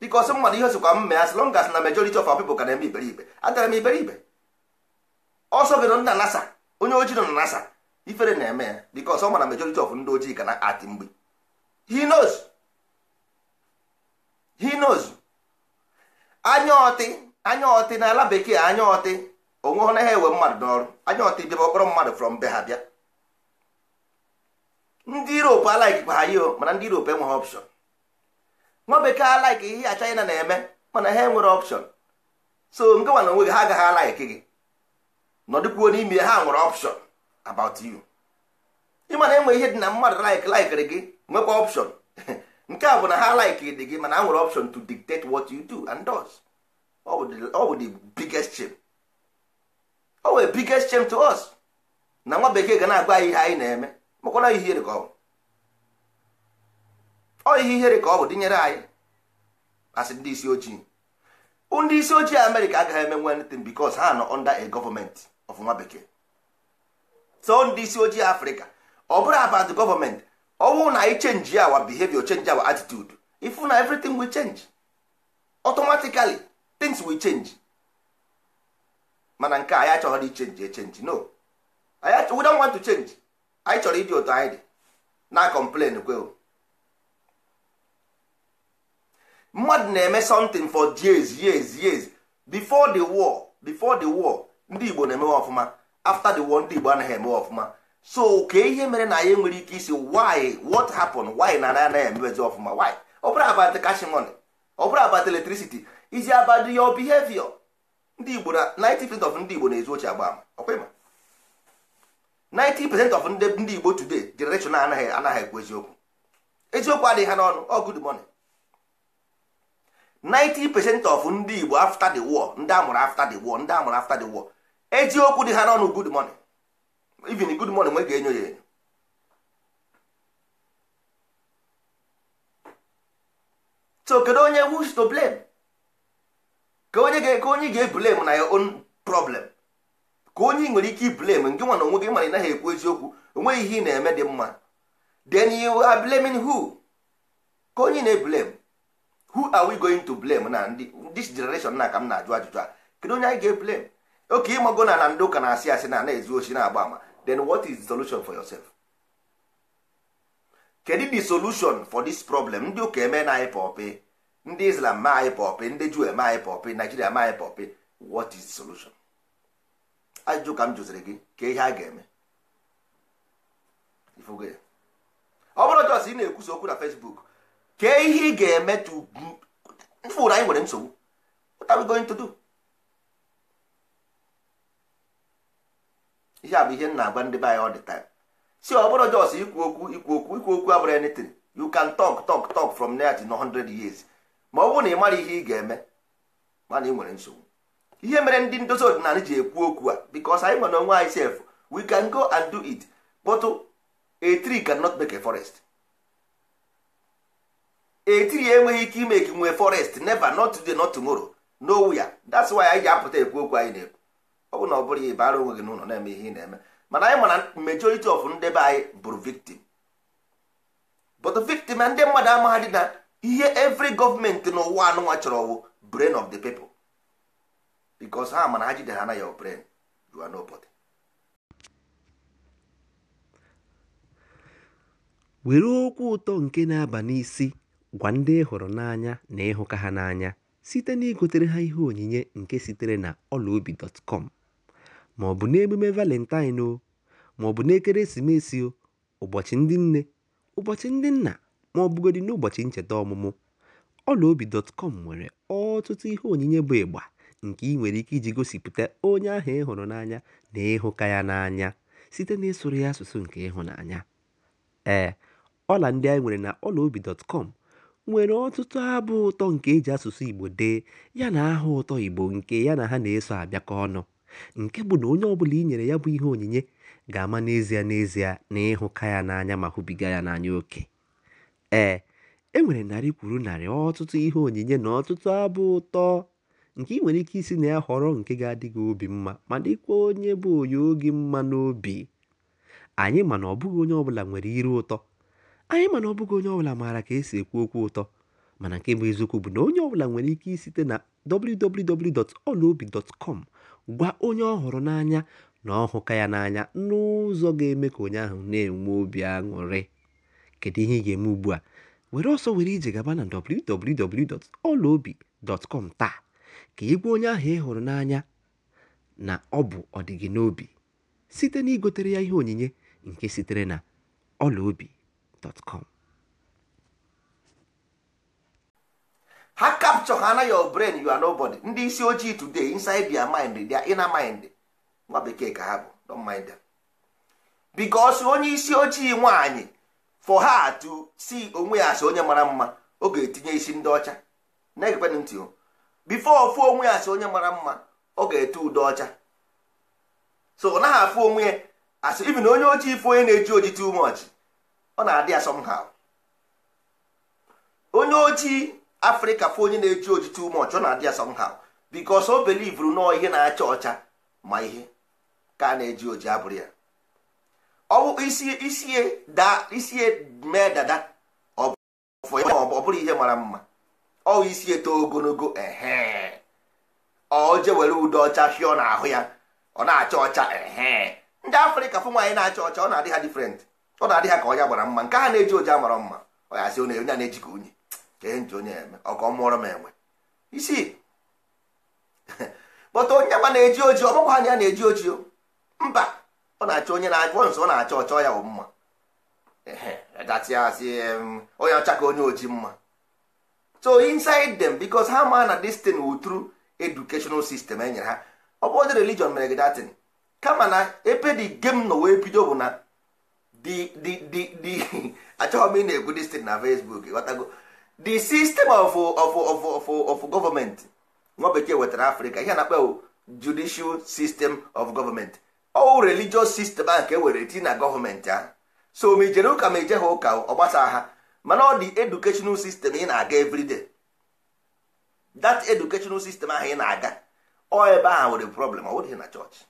dịka ọsọ mmadụ ihe osikwa kwa mee as long as na majority of our people ka na-eme iberibe adara m iberibe ọsọ gị nọ na nasa onye ojii nọ na nasa ifere na-eme ya biko ọsọ mana majority of ndị ojii ka na atị mgbe he knows he knows anya ọtị anya ọtị na ala bekee anya ọtị onwe na naghị ewe mmadụ n'ọrụ anya ọta ibiaba ọkpọrọ mmadụ from be ha bịa ndị Europe alaikikwa ha yio mana ndị Europe enweghị option nwa bekee alaiki ihe a China na-eme mana ha enwere option so nke nwa na onwe gị ha agaghị alaiki gị nọdụkwuo n'ime ha nwere option about you ịmana na enwe ihe dị na mmadụ laik laikiri gị nwekwa option nke a bụ na ha laiki dị gị mana ha nwere option to dictate what you do and does ọ bụ the biggest o oh, nwere biggest chem to us na nwa bekee ga na-agwa anyị ihe anyị na-eme makwana ihere ka ọ bụ ihe ihere ka ọ bụ dịnyere anyị asị ndị isi ojii ndị isi ojii amerịka agaghị eme nwe anything because ha nọ under a government of nwa bekee so ndị isi ojii afrịka ọ bụrụ abat gọọmenti ọ bụrụ na anyị chenji awa bihevio change awa attitude ifu na everything wi chenji. automatically things will chenji mana nke anyị achọghị dị chenji echenji no we don't want to change anyị chọrọ ịdị otu anyị dị na complain kweo mmadụ na-eme something for years years years before the war before the war ndị Igbo na-emewe ọfụma after the war ndị Igbo anaghị emewe ọfụma so ka ihe mere na anyị nwere ike isi why what happened why na anyị anaghị emewezi ọfụma why ọ bụrụ about cash money ọ bụrụ about electricity izi about your behavior ndị Igbo na 90% of ndị Igbo na-ezu agba ama ọkwa ịma 90% of ndị Igbo today generation anaghị anaghị ekwu eziokwu eziokwu adịghị ha n'ọnụ ọ good money 90% of ndị Igbo after the war ndị amụrụ after the war ndị amụrụ after the war eziokwu dị ha n'ọnụ good money even good money nwe ga-enyo ya enyo so kedu onye who's to blame ka onye ga-ebulem na your own problem ka onye nwere ike iblem nke nwa na onwe gị mara ị naghị ekwu eziokwu onweghị ihe ị na-eme dị mma then you are blaming who ka onye na-eblem who are we going to blame na ndị this generation na ka m na-ajụ ajụjụ a kedu onye anyị ga-eblem oke ịmago na na ndị ụka na-asị asị na na-ezu ochi na-agba ama then what is the solution for yourself kedu the solution for this problem ndị ụka eme na anyị e pọpị ndị islam ma anyị pọpị ndị juu eme anyị pọpị naijiria ma anyị pọpị what is solution ajụjụ ka m jụziri gị ka ihe a ga-eme ọ bụrụ jos ị na-ekwusa okwu na facebook ka ihe ị ga-eme tụfụrụ anyị nwere nsogbu what are we going to do ihe a bụ ihe na agba ndị be anyị all the time si ọ bụrụ jos ikwu okwu ikwu okwu ikwu okwu abụrụ anything you can talk talk talk from there to 100 years ma ọ bụrụ na ị mara ihe ị ga-eme mana ị nwere nsogbu ihe mere ndị ndozi ọdịnala ji ekwu okwu a because anyị nwere onwe anyị sef we can go and do it but etiri tree cannot make a forest etiri enweghị ike ime ka nwee forest never not today not tomorrow ya that's why anyị ji apụta ekwu okwu anyị na-ekwu ọ bụ na ọ bụrụ ya ịbara onwe gị n'ụlọ na-eme ihe ị na-eme mana anyị mana majority of ndebe anyị bụrụ victim bụtụ victim na ndị mmadụ amaghị na ihe every gọọmenti n'ụwa anụnwa chọrọ bụ brain of the people because ha mana ha jide ha na your brain you are were okwu ụtọ nke na-aba n'isi gwa ndị ịhụrụ e n'anya na ịhụka ha n'anya site na igotere ha ihe onyinye nke sitere na ọlaobi.com ma ọ bụ n'emume valentine o ma ọ bụ n'ekeresimesi o ụbọchị ndị nne ụbọchị ndị nna ma ọ bụgodị n'ụbọchị ncheta ọmụmụ, ọlaobi.com nwere ọtụtụ ihe onyinye bụ ịgba nke ị nwere ike iji gosipụta onye ahụ ị hụrụ n'anya na ịhụka ya n'anya site n'ịsụrụ ya asụsụ nke ịhụnanya. Ee, ọla ndị anyị nwere na ọlaobi.com nwere ọtụtụ abụ ụtọ nke e ji asụsụ Igbo dee ya na aha ụtọ Igbo nke ya na ha na-eso abịakọ ọnụ, nke bụ na onye ọbụla i nyere ya bụ ihe onyinye ga-ama n'ezie n'ezie na ịhụka ya n'anya ma hụbiga ya n'anya oke. Ee, e nwere narị kwuru narị ọtụtụ ihe onyinye na ọtụtụ abụ ụtọ nke ị nwere ike isi na ya họrọ nke ga-adị gị obi mma ma dịkwa onye bụ onye oge mma n'obi. Anyị ma na ọ bụghị onye ọbụla nwere iru ụtọ, anyị ma na ọ bụghị onye ọbụla maara ka esi ekwu okwu ụtọ, mana nke bụ eziokwu bụ na onye ọbụla nwere ike isite na www.olaobi.com gwa onye ọ hụrụ n'anya na ọ hụka ya n'anya n'ụzọ ga-eme ka onye ahụ na-enwe obi aṅụrị. kedu ihe ị ga-eme ugbu a were ọsọ were ije gaba na www.ọlaobi.com taa ka ị onye ahụ ị hụrụ n'anya na ọ bụ ọdịgị n'obi site na igotere ya ihe onyinye nke sitere na ọlaobi.com ha capture ha na your brain you are nobody ndị isi ojii today inside their mind their inner mind nwa bekee ka ha bụ don mind them onye isi ojii nwaanyị for ha to see onwe ya asị onye mara mma ọ ga-etinye isi ndị ọcha na ntị o fụ onwe ya asị onye mara mma ọ ga-ete ude ọcha so ọ naghị afụ onwe ya asị ibi na onye ojii fụ onye na-eji oji too much ọ na-adị ya somehow onye ojii afrịka fụ onye na-eji oji too much ọ na-adị ya somehow because o belivuru nọọ ihe na-acha ọcha ma ihe ka a na-eji oji abụrụ ya ọwụ isie mee dada ọ bụrụ ihe mara mma ọwụ isi eto ogologo ehe ọ je were ude ọcha fịọ n'ahụ ya ọ na-acha ọcha ehe ndị afrịka fụ nwaanyị na-acha ọcha ọ na-adị ha difrent ọ na-adị ha ka ọnya gbara mma nke ha na-eji oje amara mma ọ ya onye a na-eji ka unyi ka ihe nji onye eme ọ ka ọ mụọrọ m enwe isi kpọta onye ma na-eji oji ọ bụkwa ha na ya na-eji oji mba ọ na-achọ onye na-achọ nsọ ọ na-achọ ọchọ ya mma datiazi onye ọchaka ka onye oji mma so inside them because ha ma na destin thing wu through educational system enyere ha ọ bụ dị religion mere gdatin datin kama na ebe the game nọ wee bido bụ na the m ị na-ekwu this na Facebook the system of of of of of government nwa bekee wetara Africa ihe na-akpa judicial system of government ọwụ religious system a nke e were tii na gọọmenti ahụ so ma ijere ụka ma ije ha ụka ọ ha mana ọ dị educational system ị na-aga everyday that educational system ahụ ị na-aga ọ ebe ahụ nwere problem ọ bụghị na chọọchị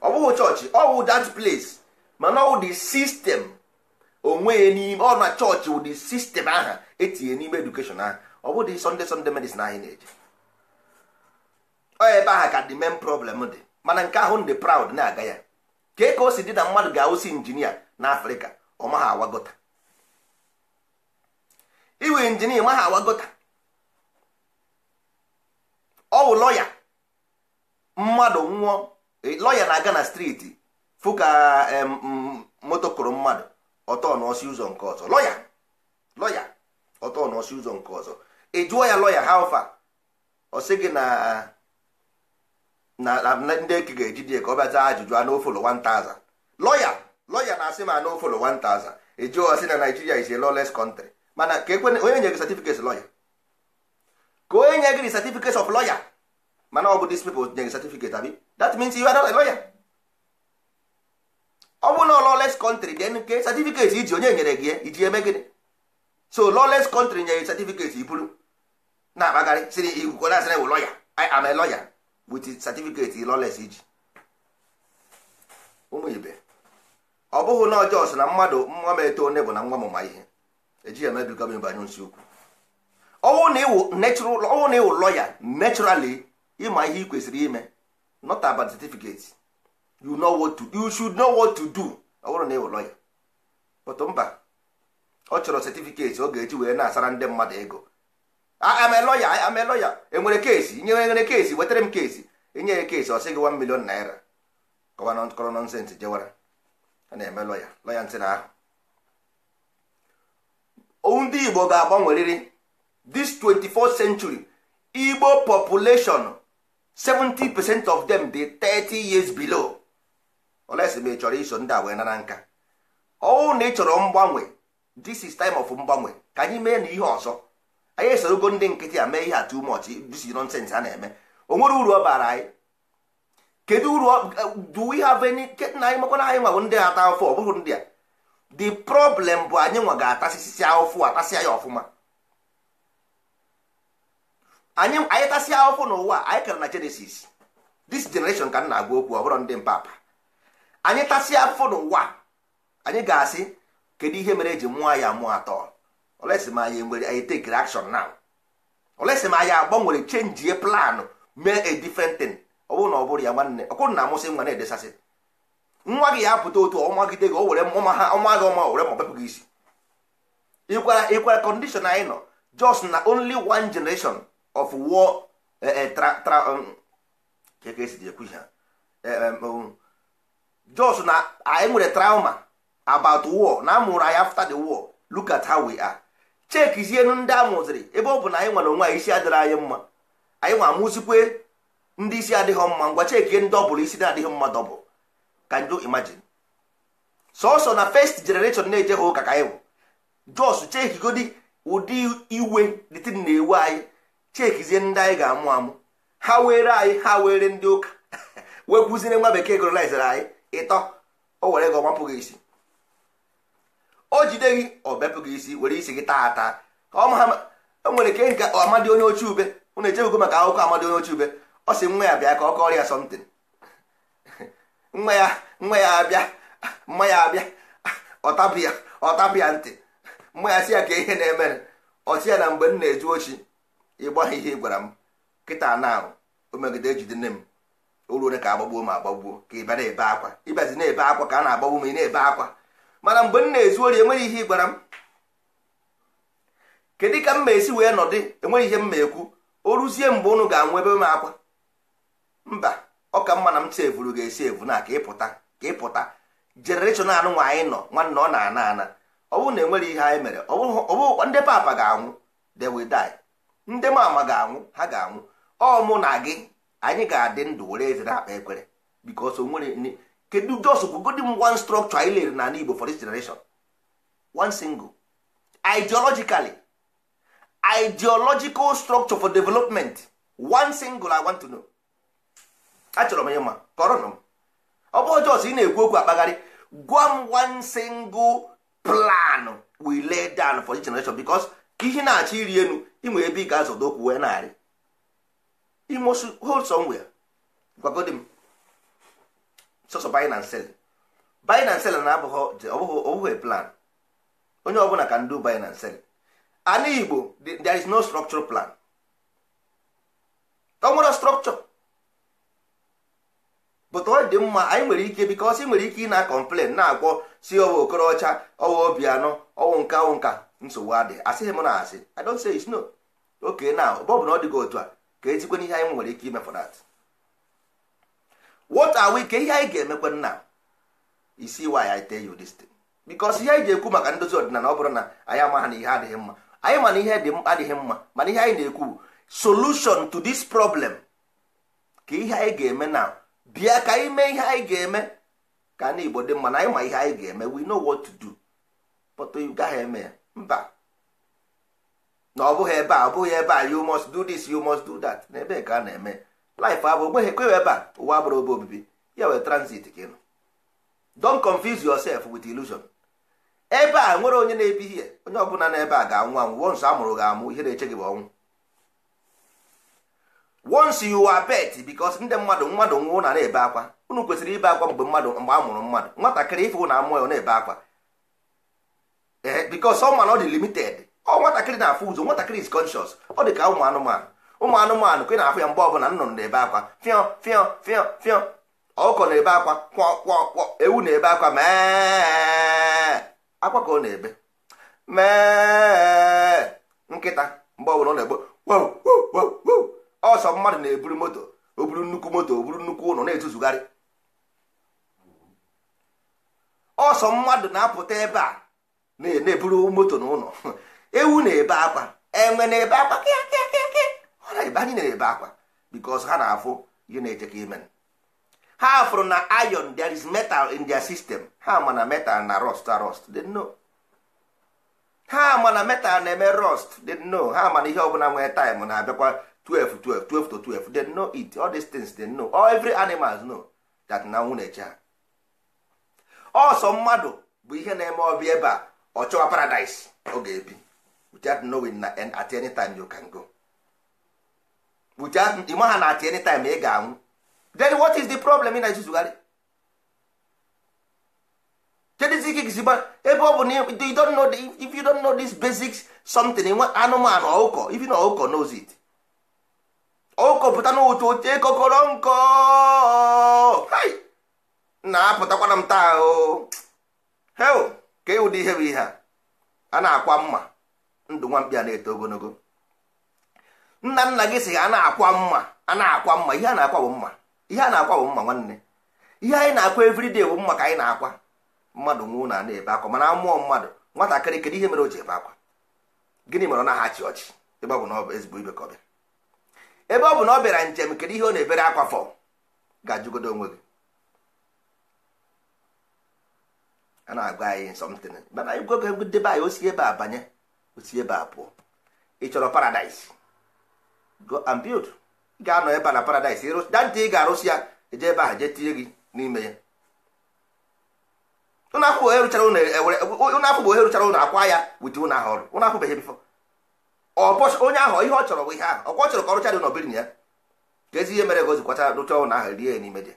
ọ bụghị chọọchị ọ wụ that place mana ọ dị system onwe n'ime ọ na chọọchị ụdị sistem ahụ etinye n'ime edukeshọn ahụ ọ bụdị sọnde sọnde medicine anyị na-eje ọ ebe ahụ ka dị main problem dị mana nke ahụ ndị proud na-aga ya kee ka o si dị na mmadụ ga-awụsi injinia na afrịka ọ awagota iwe injinia maha awagota ọ wụ lọya mmadụ nwụọ lọya na-aga na striti fụ ka kụrụ mmadụ ọtọ n'ọsị ụzọ nke ọzọ lọya lọya ụzọ nke ọzọ ị jụọ ya lọya ha ọ sị gị na na ndị eke ga-eji dị ka ọ bịa zaa ajụjụ a n'ofolo 1000 lọya lọya na-asị ma n'ofolo 1000 eji ọsị na Naijiria is a lawless country mana ka ekwe onye nye gị certificate lọya ka onye nye gị certificate of lawyer mana ọ bụ dis pipo nye gị certificate abi that means you are not a lawyer ọ bụ na lawless country then ke certificate iji onye nyere gị iji eme gịnị so lawless country nye gị certificate iburu na-akpagharị siri igwukọ na-asị na ewu lọya I am a lawyer with certificate lawless iji ụmụ ibe ọ bụghị na ọjọọ na mmadụ nwa m eto onye bụ na nwa m ma ihe ya emebigo m ịbanye nsi ukwu ọwụ na ịwụ lọya naturally ịma ihe ị kwesịrị ime not about certificate you know what to you should know what to do ọ bụrụ na ịwụ lọya otu mba ọ chọrọ certificate ọ ga-eji wee na-asara ndị mmadụ ego am a lawyer am e a enwere keesi nye nwere keesi wetara m kesi enye ya kesi ọ gị 1 million naira nọnsensị jewara a na-eme loya loya ntị na ahụ owu ndị igbo ga-agbanwerịrị this 24th century igbo population 70% of them dey 30 years below olesi ma ị chọrọ iso ndị a wee nara nka ọwụ na ị mgbanwe this is time of mgbanwe ka anyị mee na ihe ọzọ anyị esorogo ndị nkịtị a mee ihe a too much this nonsense a na-eme o nwere uru ọ bara anyị kedu uru do we have any na anyị makwana anyị nwago ndị ata afọ ọ bụghị ndị a the problem bụ anyị nwa ga-atasịsịa ụfụ atasia ya ọfụma anyị tasịa ụfụ n'ụwa anyị kara na Genesis this generation ka m na-agwa okwu ọ bụrụ ndị mpapa anyị tasịa afụ n'ụwa anyị ga-asị kedu ihe mere eji mụọ ya mụọ atọ olesi ma anyị nwere anyị take action now olesi ma ya agbanwere change ye plan mee a different thing ọ bụrụ na ọ bụrụ ya nwanne ọkwụrụ na amụsị nwa na-edesasị nwa gị ya apụta otu ọmagide gị ọwere ọma ha ọma gị ọma were ma ọbepụ gị isi ịkwara ịkwara condition anyị nọ just na only one generation of war e, e, um, just na anyị nwere trauma about war na amụrụ anyị after the war look at how we are. chekizienu ndị a mụziri ebe ọ bụ na anyị nwere onwe anyị isi adịrị anyị mma anyị nwa amụzikwe ndị isi adịghị mma ngwa chekie ndị ọ bụla isi na-adịghị mma dọbụ ka ndị imagine sọsọ na first generation na-ejeghị ụka ka anyị bụ jos chekigodi ụdị iwe dịtị na-ewe anyị chekizie ndị anyị ga-amụ amụ ha were anyị ha were ndị ụka wee kwuzire nwa bekee kolonizere anyị ịtọ o were gị ọmapụ gị isi o jide gị ọ gị isi were isi gị taa ata ka ọ ma e nwere ke nke amadị onye ochie ube na echebego maka akwụkwọ amadi onye ochie ube ọ sị nwa ya bịa ka ọ kọrọ ya sọmtin nwa ya nwa ya abịa mma ya abịa ọtapụ ya ọtapụ ya ntị mma ya si ya ka ihe na-emere ọsi ya na mgbe m na-eju ochi ịgba ihe ị gwara m kịta na o megide ejide nne m o ruo ka agbagbuo m agbagbuo ka ịba na-ebe akwa ịbazi na-ebe akwa ka a na-agbagbu m ị na-ebe akwa mana mgbe m na-ezu ori enweghị ihe ị gwara m kedu ka m ma esi wee nọdụ enweghị ihe m ma ekwu o ruzie mgbe unu ga-anwụ ebe m akwa mba ọ ka mma e e na m sevuru ga-esi evu na ka ịpụta ka ịpụta jenereshọn anụ nwa anyị nọ nwanne ọ na-ana ana ọ bụrụ na enwere ihe anyị mere ọ ndị papa ga-anwụ they die ndị mama ga-anwụ ha ga-anwụ ọ mụ na gị anyị ga-adị ndụ were eze na akpa ekwere because nwere kedu jos kwugodi m one structure anyị lere n'ala Igbo for this generation one single ideologically ideological structure for development one single I want to know achọrọ m ya ma kọrọ m ọ bụrụ jos ị na-ekwu okwu akpagharị gwa m one single plan we lay down for this generation because ka ihe na-achọ iri elu inwe ebe ị ga-azọdo okwu wee narị imosu hold somewhere gwagodi m sọsọ buy and sell buy and sell na abụghị plan onye ọbụla can do buy and sell ana igbo there is no structural plan ọ nwere structure but ọ dị mma anyị nwere ike because ị nwere ike ị na-complain na-agwọ si ọwa okorocha ọwa obianọ ọwụ nka ọwụ nka nsogbu adị asịghị m na asị i don't say it's no oke na bọbụ na ọ dịghị otu a ka ezigbo n'ihe anyị nwere ike ime for that what are we ka ihe anyị ga-emekwe nna isi why I tell you this because ihe anyị ga ekwu maka ndozi ọdịnala ọ bụrụ na anyị ama na ihe adịghị mma anyị ma na ihe adịghị mma mana ihe anyị na-ekwu solution to this problem ka ihe anyị ga-eme na bịa ka anyị mee ihe anyị ga-eme ka ndị Igbo dị mma na anyị ma ihe anyị ga-eme we know what to do but you gaghị eme mba na ọ bụghị ebe a ọ bụghị ebe a you must do this you must do that na ebe ka a na-eme life abụ ogbe ekweghị ebe a ụwa abụrụ ebe obibi ya wee transit ka nọ. don confuse yourself with illusion ebe a nwere onye na ebi ihe onye ọbụla n'ebe a ga-anwụ anwụ once a mụrụ ga-amụ ihe na-eche gị bụ ọnwụ once you are bet ndị mmadụ mmadụ nwụ na na-ebe akwa unu kwesịrị ibe akwa mgbe mmadụ mgbe a mụrụ mmadụ nwatakịrị ife na amụọ ya na-ebe akwa eh, because ọ mana ọ dị limited ọ nwatakịrị na-afụ ụzọ nwatakịrị is conscious ọ dị ka ụmụ anụmanụ ụmụ anụmanụ ka ị na-afụ ya mgbe ọbụla nnụnụ na-ebe akwa fịọ fịọ fịọ fịọ ọkụkọ na-ebe akwa kwọ kwọ kwọ ewu na-ebe akwa mee akwa ka ọ na-ebe mee nkịta mgbe ọbụla ọ na-egbo ọsọ mmadụ na-eburu moto o buru nnukwu moto o buru nnukwu ụlọ na-etuzugharị ọsọ mmadụ na-apụta ebe a na-eburu moto na ụlọ ewu na-ebe akwa enwe na-ebe akwa kịa kịa kịa mana ebe anyị na-ebe akwa because ha na-afụ ihe na-eche ka ha fụrụ na iron there is metal in their system ha ma na metal na rust rust they know ha ma na metal na-eme rust they know ha ma na ihe ọbụla nwere time na-abịakwa 12 12 12 to 12 they know it all these things they know all every animals know that na nwụ na-eche ọsọ mmadụ bụ ihe na-eme ọbịa ebe a ọ chọwa paradise ọ ga-ebi without knowing na at any time you can go. ime ha na-achị anytime ị eh, ga-anwụ hm. then what is the problem ị na-ezuzugharị kedụzi ike gịzi ebe ọ bụ na you don't know if you don't know this basic something eh, anụmanụ you even ọkụkọ knows it ọkụkọ pụta n'ụtụ oche kokoro nkọ na-apụtakwana m taa ahụ hel ka ụdị ihe bụ ihe a a na-akwa mma ndụ nwa mkpi a na-eto ogologo nna nna gị sị a na-akwa mma a na-akwa mma ihe a na-akwa bụ mma ihe a na-akwa bụ mma nwanne ihe anyị na-akwa everyday bụ mma ka anyị na-akwa mmadụ nwụọ na ana ebe akwa mana mmụọ mmadụ nwatakịrị kedu ihe mere o ji ebe akwa gịnị mere ọ na-ahachi ọchị ebe ọ bụ na ọ bụ ezigbo ibe ka ọ bịara ebe ọ bụ na ọ bịara njem kedu ihe ọ na-ebere akwa fọ ga-ajụgodo onwe gị a na-agwa anyị something mana anyị gwogo debe anyị osi ebe a banye osi ebe a pụọ ị chọrọ paradaịs go and build ị ga-anọ ebe na paradise dantị ị ga-arụsị ya eje ebe ahụ jee tinye gị n'ime ya ụnụ afụ bụ eruchara ụnụ akwa ya wit ụnụ ahụ ọrụ ụnụ afụbeghị bifọ onye ahụ ihe ọ chọrọ bụ ihe ahụ ọkwa chọrọ ka ọrụcha dị n'obirin ya ka ezi ihe mere ka o zikwata rụcha ụnụ ahụ rie ya n'ime dị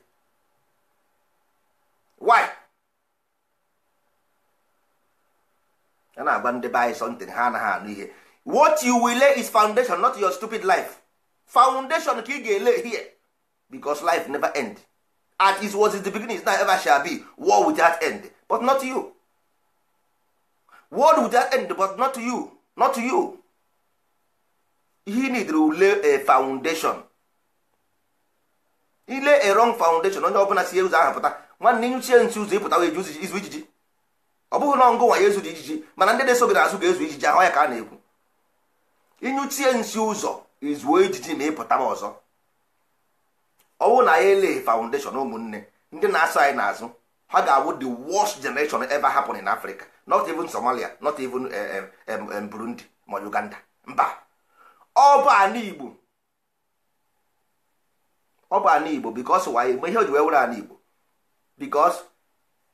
why a na-agba ndị be anyị sọntịn ha anaghị anụ ihe what you will lay is foundation not your stupid life foundation ka ị ga-ele here because life never end at is was is the beginning is not ever shall be war without end but not you war without end but not you not you he need to lay a foundation lay a wrong foundation onye ọbụla si ụzọ ahụ pụta nwanne nyuchie nsi ụzọ ịpụta wee izu ijiji ọ bụghị na ọngụ nwa ya ezu ijiji mana ndị na-eso gị n'azụ ga-ezu ijiji ahụ ya ka a na-ekwu ịnyụchie nsi ụzọ izuo ejiji ma ịpụta m ọzọ ọnwụ na ya ele foundation ụmụnne ndị na-asọ anyị n'azụ ha ga-awụ the worst generation ever happen in Africa not even Somalia not even eh, eh, Burundi ma Uganda mba ọ bụ ana Igbo ọ bụ ana Igbo because why ma ihe o ji wee were ana Igbo because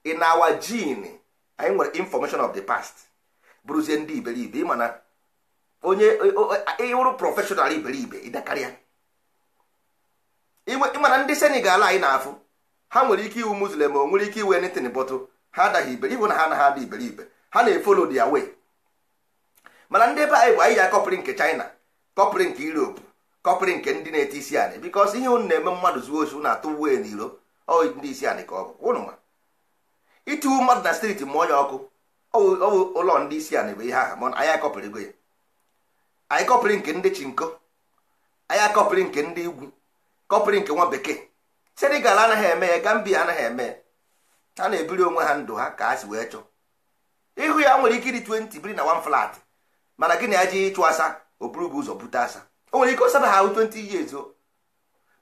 in our gene anyị nwere information of the past bụrụzie ndị iberibe ịma onye ịwụrụ prọfeshọnal iberibe ịdakarịa ịmana ndị senegal anyị na-afụ ha nwere ike iwu muslim o nwere ike iwe netin bọtụ ha adaghị iberi ihụ na ha anaghị ada iberibe ha na-efolo dia wee mana ndị ebe anyị bụ anyị ya kọpụrụ nke china kọpụrụ nke europe kọpụrụ nke ndị na-ete isi anị bikọs ihe unu na-eme mmadụ zuo ozu na-atụ uwe n'iro ndị isi anị ka ọ bụ ụnụ ma itiwu mmadụ na steeti mmụọ ya ọkụ ọwụ ụlọ ndị isi anị bụ ihe aha mana anyị akọpịrịgo ya anyị kọpịrị nke ndị chinko anyị akọpịrị nke ndị igwu kọpịrị nke nwa bekee senegal anaghị eme ya gambia anaghị eme ya ha na-ebiri onwe ha ndụ ha ka ha si wee chọọ ihu ya nwere ike ịdị 20 biri na one flat mana gị na ya ji ịchụ asa oburu buru bụ ụzọ bute asa o nwere ike ọsaba ha 20 years o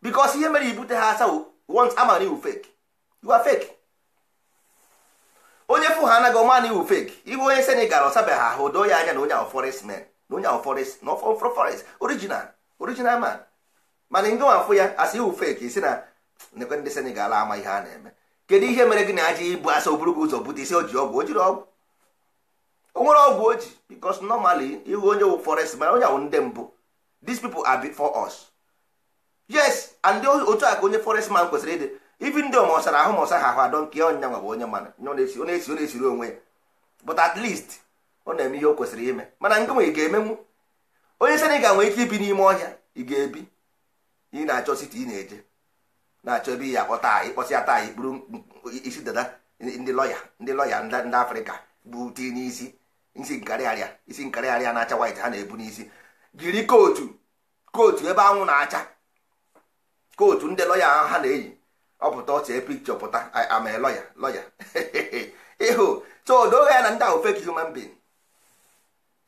bikos ihe mere ibute ha asa once amara iwu fake you are fake onye fụ ha anaghị ọma na iwu fake ihu onye senegal ọsabeghị ahụ doo ya anya na onye ahụ forest na onye ahụ forest na ọfọ forest original original man mana ngị afụ ya asị iwu fake isi na nekwe ndị senegal ama ah, eh, ihe a na-eme kedu ihe mere gị na aja ibu asa oburu gị ụzọ bute isi o ji ọgwụ o jiri ọgwụ o nwere ọgwụ o ji because normally ihu onye wụ forest mana onye ahụ ndị mbụ these people are for us yes and otu a ka onye forest man kwesịrị ịdị ibi ndị ọmọsara ahụ mọsa ha ahụ adọ nke onye ọnya nwa bụ onye mana onye na-esiri onwe ya but at least ọ na-eme ihe o kwesịrị ime mana nke nwe ị ga-emenwu onye sị na ị ga-nwee ike ibi n'ime ọhịa ị ga-ebi ị na-achọ siti ị na-eje na-achọ ebe ya akpọta ịkpọsịa taa anyị bụrụ isi dada ndị lọya ndị lọya ndị afrịka bụ ti n'isi isi nkarịarịa isi nkarịarịa na-acha white ha na-ebu n'isi jiri kootu kootu ebe anwụ na-acha kootu ndị lọya ha na-eyi ọ pụta ọchee pikchọ pụta ama lọya lọya ịhụ so odoghị ya na ndị ahụ fake human being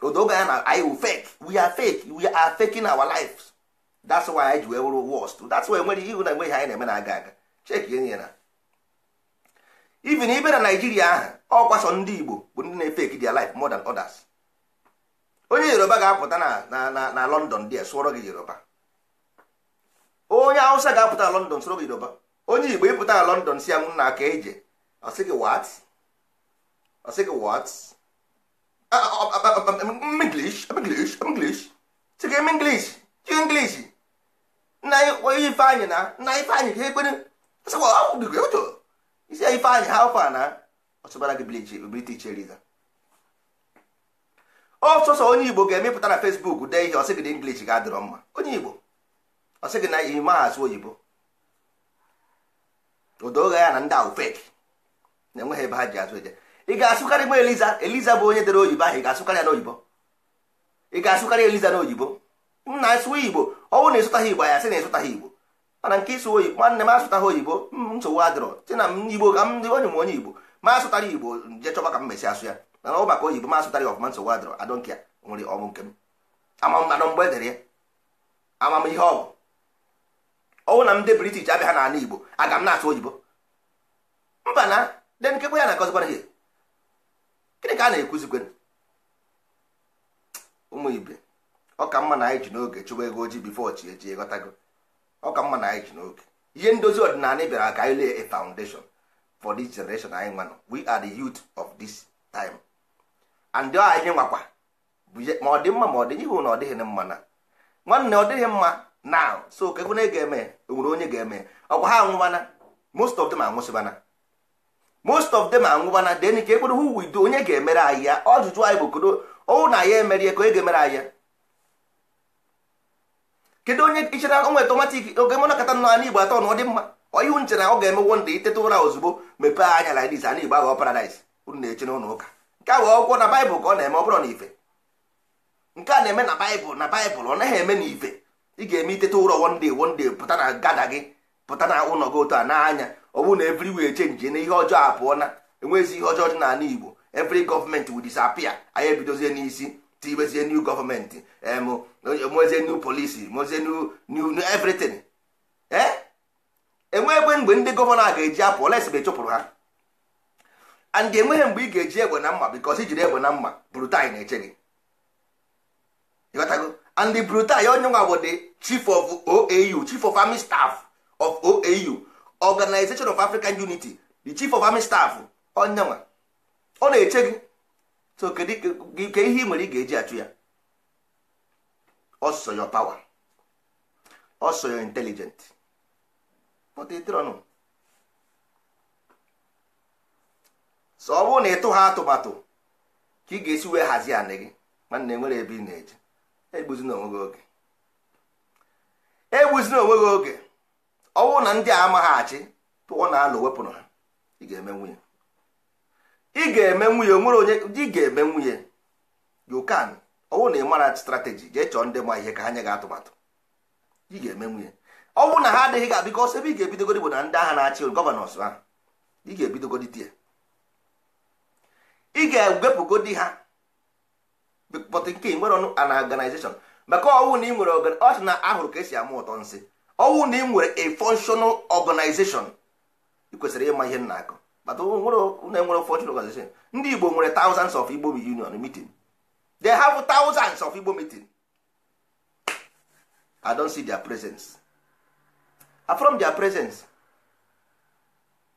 odobe ya na anyị wụ fake we are fake we are faking our lives that's why anyị ji wee wụrụ worst that's why nwere ihu na enweghị anyị na-eme na-aga aga cheki enyi na even ibe na Naijiria ahụ ọkwasọ ndị Igbo bụ ndị na-efeki their life more than others onye Yoruba ga-apụta na na na London dia sụọrọ gị Yoruba onye Hausa ga-apụta na London sụọrọ gị Yoruba onye Igbo ịpụta na London si ya m nna aka eje ọ sị gị what ọ sị gị what english english english chigem english chi english nna ifeanyị na nna ifeanyị ga ekwere isi ya ifeanyị ha ụfa na ọsụbara gị biliti cheriza ọsọsọ onye igbo ga-emepụta na facebook dee ihe ọsị gị na english ga-adịrọ mma onye igbo ọsị gị na ime asụ oyibo odo ụgha ya na ndị ahụ feki na-enweghị ebe ha ji azụ eje ị ga-asụkarị gba eliza eliza bụ onye dere oyibo ahụ ị ga-asụkarị ya n'oyibo ị ga-asụkarị eliza n'oyibo m na-asụ igbo ọnwụ na ịsụtaghị igbo ya sị na ịsụtaghị igbo mana nke ịsụ oyibo nwanne m asụtaghị oyibo nsogbu adịrọ sị na m igbo ka m dị onye m onye igbo ma asụtara igbo je chọba ka m mesi asụ ya mana ọ maka oyibo ma asụtara ya ọfụma nsogbu adịrọ adọ nke ya nwere ọnwụ nke m amammanụ mgbe edere ya amam ihe ọ bụ ọnwụ na m ndị british abịa ha n'ala igbo aga m na-asụ oyibo mba na de nkekwa ya na ihe gịnị ka a na-ekwuzikwe ụmụ ibe ọ mma na anyị ji n'oge chụwa ego ojii bifo chi eji ghọtago ọ ka mma na anyị ji n'oge ihe ndozi ọdịnala bịara ka anyị lee a foundation for this generation anyị nwanụ we are the youth of this time and ọ anyị nwakwa ma ọ dị mma ma ọ dịghị ihu na ọ dịghị mma na nwanne ọ dịghị mma na so kekwe na ị ga-eme enwere onye ga-eme ọkwa ha anwụbana most of them anwụsịbana most of them anwụbana den ka ekpere hu wido onye ga-emere anyị ya ọjụjụ anyị bụ kodo ọnwụ na ya emere ya ka onye ga-emere anyị ya kedu onye ichere onwe tomatik oge mụna kata nọ ana igbo atọ na ọ dị mma ọyịhụ nchere ọ ga-eme wonda iteta ụra ozugbo mepee anya na dis ana igbo aghọ paradaịs unu na-eche n'ụlọ ụka nke a wee na baịbụl ka ọ na-eme ọ bụrụ na ife nke a na-eme na baịbụl na baịbụl ọ naghị eme na ife ị ga-eme iteta ụra wonde wonde pụta na gada gị pụta na ụlọ gị otu a n'anya ọ bụrụ na evri wee chenji na ihe ọjọọ abụọ na enweghịzi ihe ọjọọ dị n'ala igbo evri gọọmenti wụ disapia anyị ebidozie n'isi tibezie new gọọmenti mozie new polisi mozie new everything e? enwe egbe mgbe ndị gọvanọ ga-eji apụ lesbe chụpụrụ ha and enweghị mgbe ị ga-eji egbe na mma bikọs ijiri egbe na mma brutai na-eche gị ịghọtago and brutai onye nwa bụ the chief of oau chief of army staff of oau organization of african unity the chief of army staff onyenwa ọ na-eche gị so ihe ị nwere ị ga-eji achụ ya ọsọ pawa power ọsọ your intelligent so ọ bụrụ na ịtụ ha atụmatụ ka ị ga-esi wee hazie anị gị mana enwere ebe ị na-eje egbuzina onwe gị oge egbuzina onwe gị oge ọnwụ na ndị a amaghị achị tụọ na alụ wepụrụ ha ị ga-eme nwunye ị ga-eme nwunye onwere onye ị ga-eme nwunye you can ọnwụ na ị mara strategy jee chọọ ndị ma ihe ka ha nye gị atụmatụ ị ga-eme nwunye ọnwụ na ha adịghị ga bikọs ebe ị ga-ebidogodi bụ na ndị agha na-achị gọvanọs ahụ ị ga-ebidogodi tie ị ga-ewepụgodi ha but nke nwere ọnụ an organization maka ọnwụ na ị nwere ọchị na ahụrụ ka esi ama ụtọ nsị ọnwụ na ị nwere a functional organization ị kwesịrị ịma ihe m na-akọ enwere e functional organization ndị Igbo nwere thousands of Igbo union meeting they have thousands of Igbo meeting I don't see their presence from their presence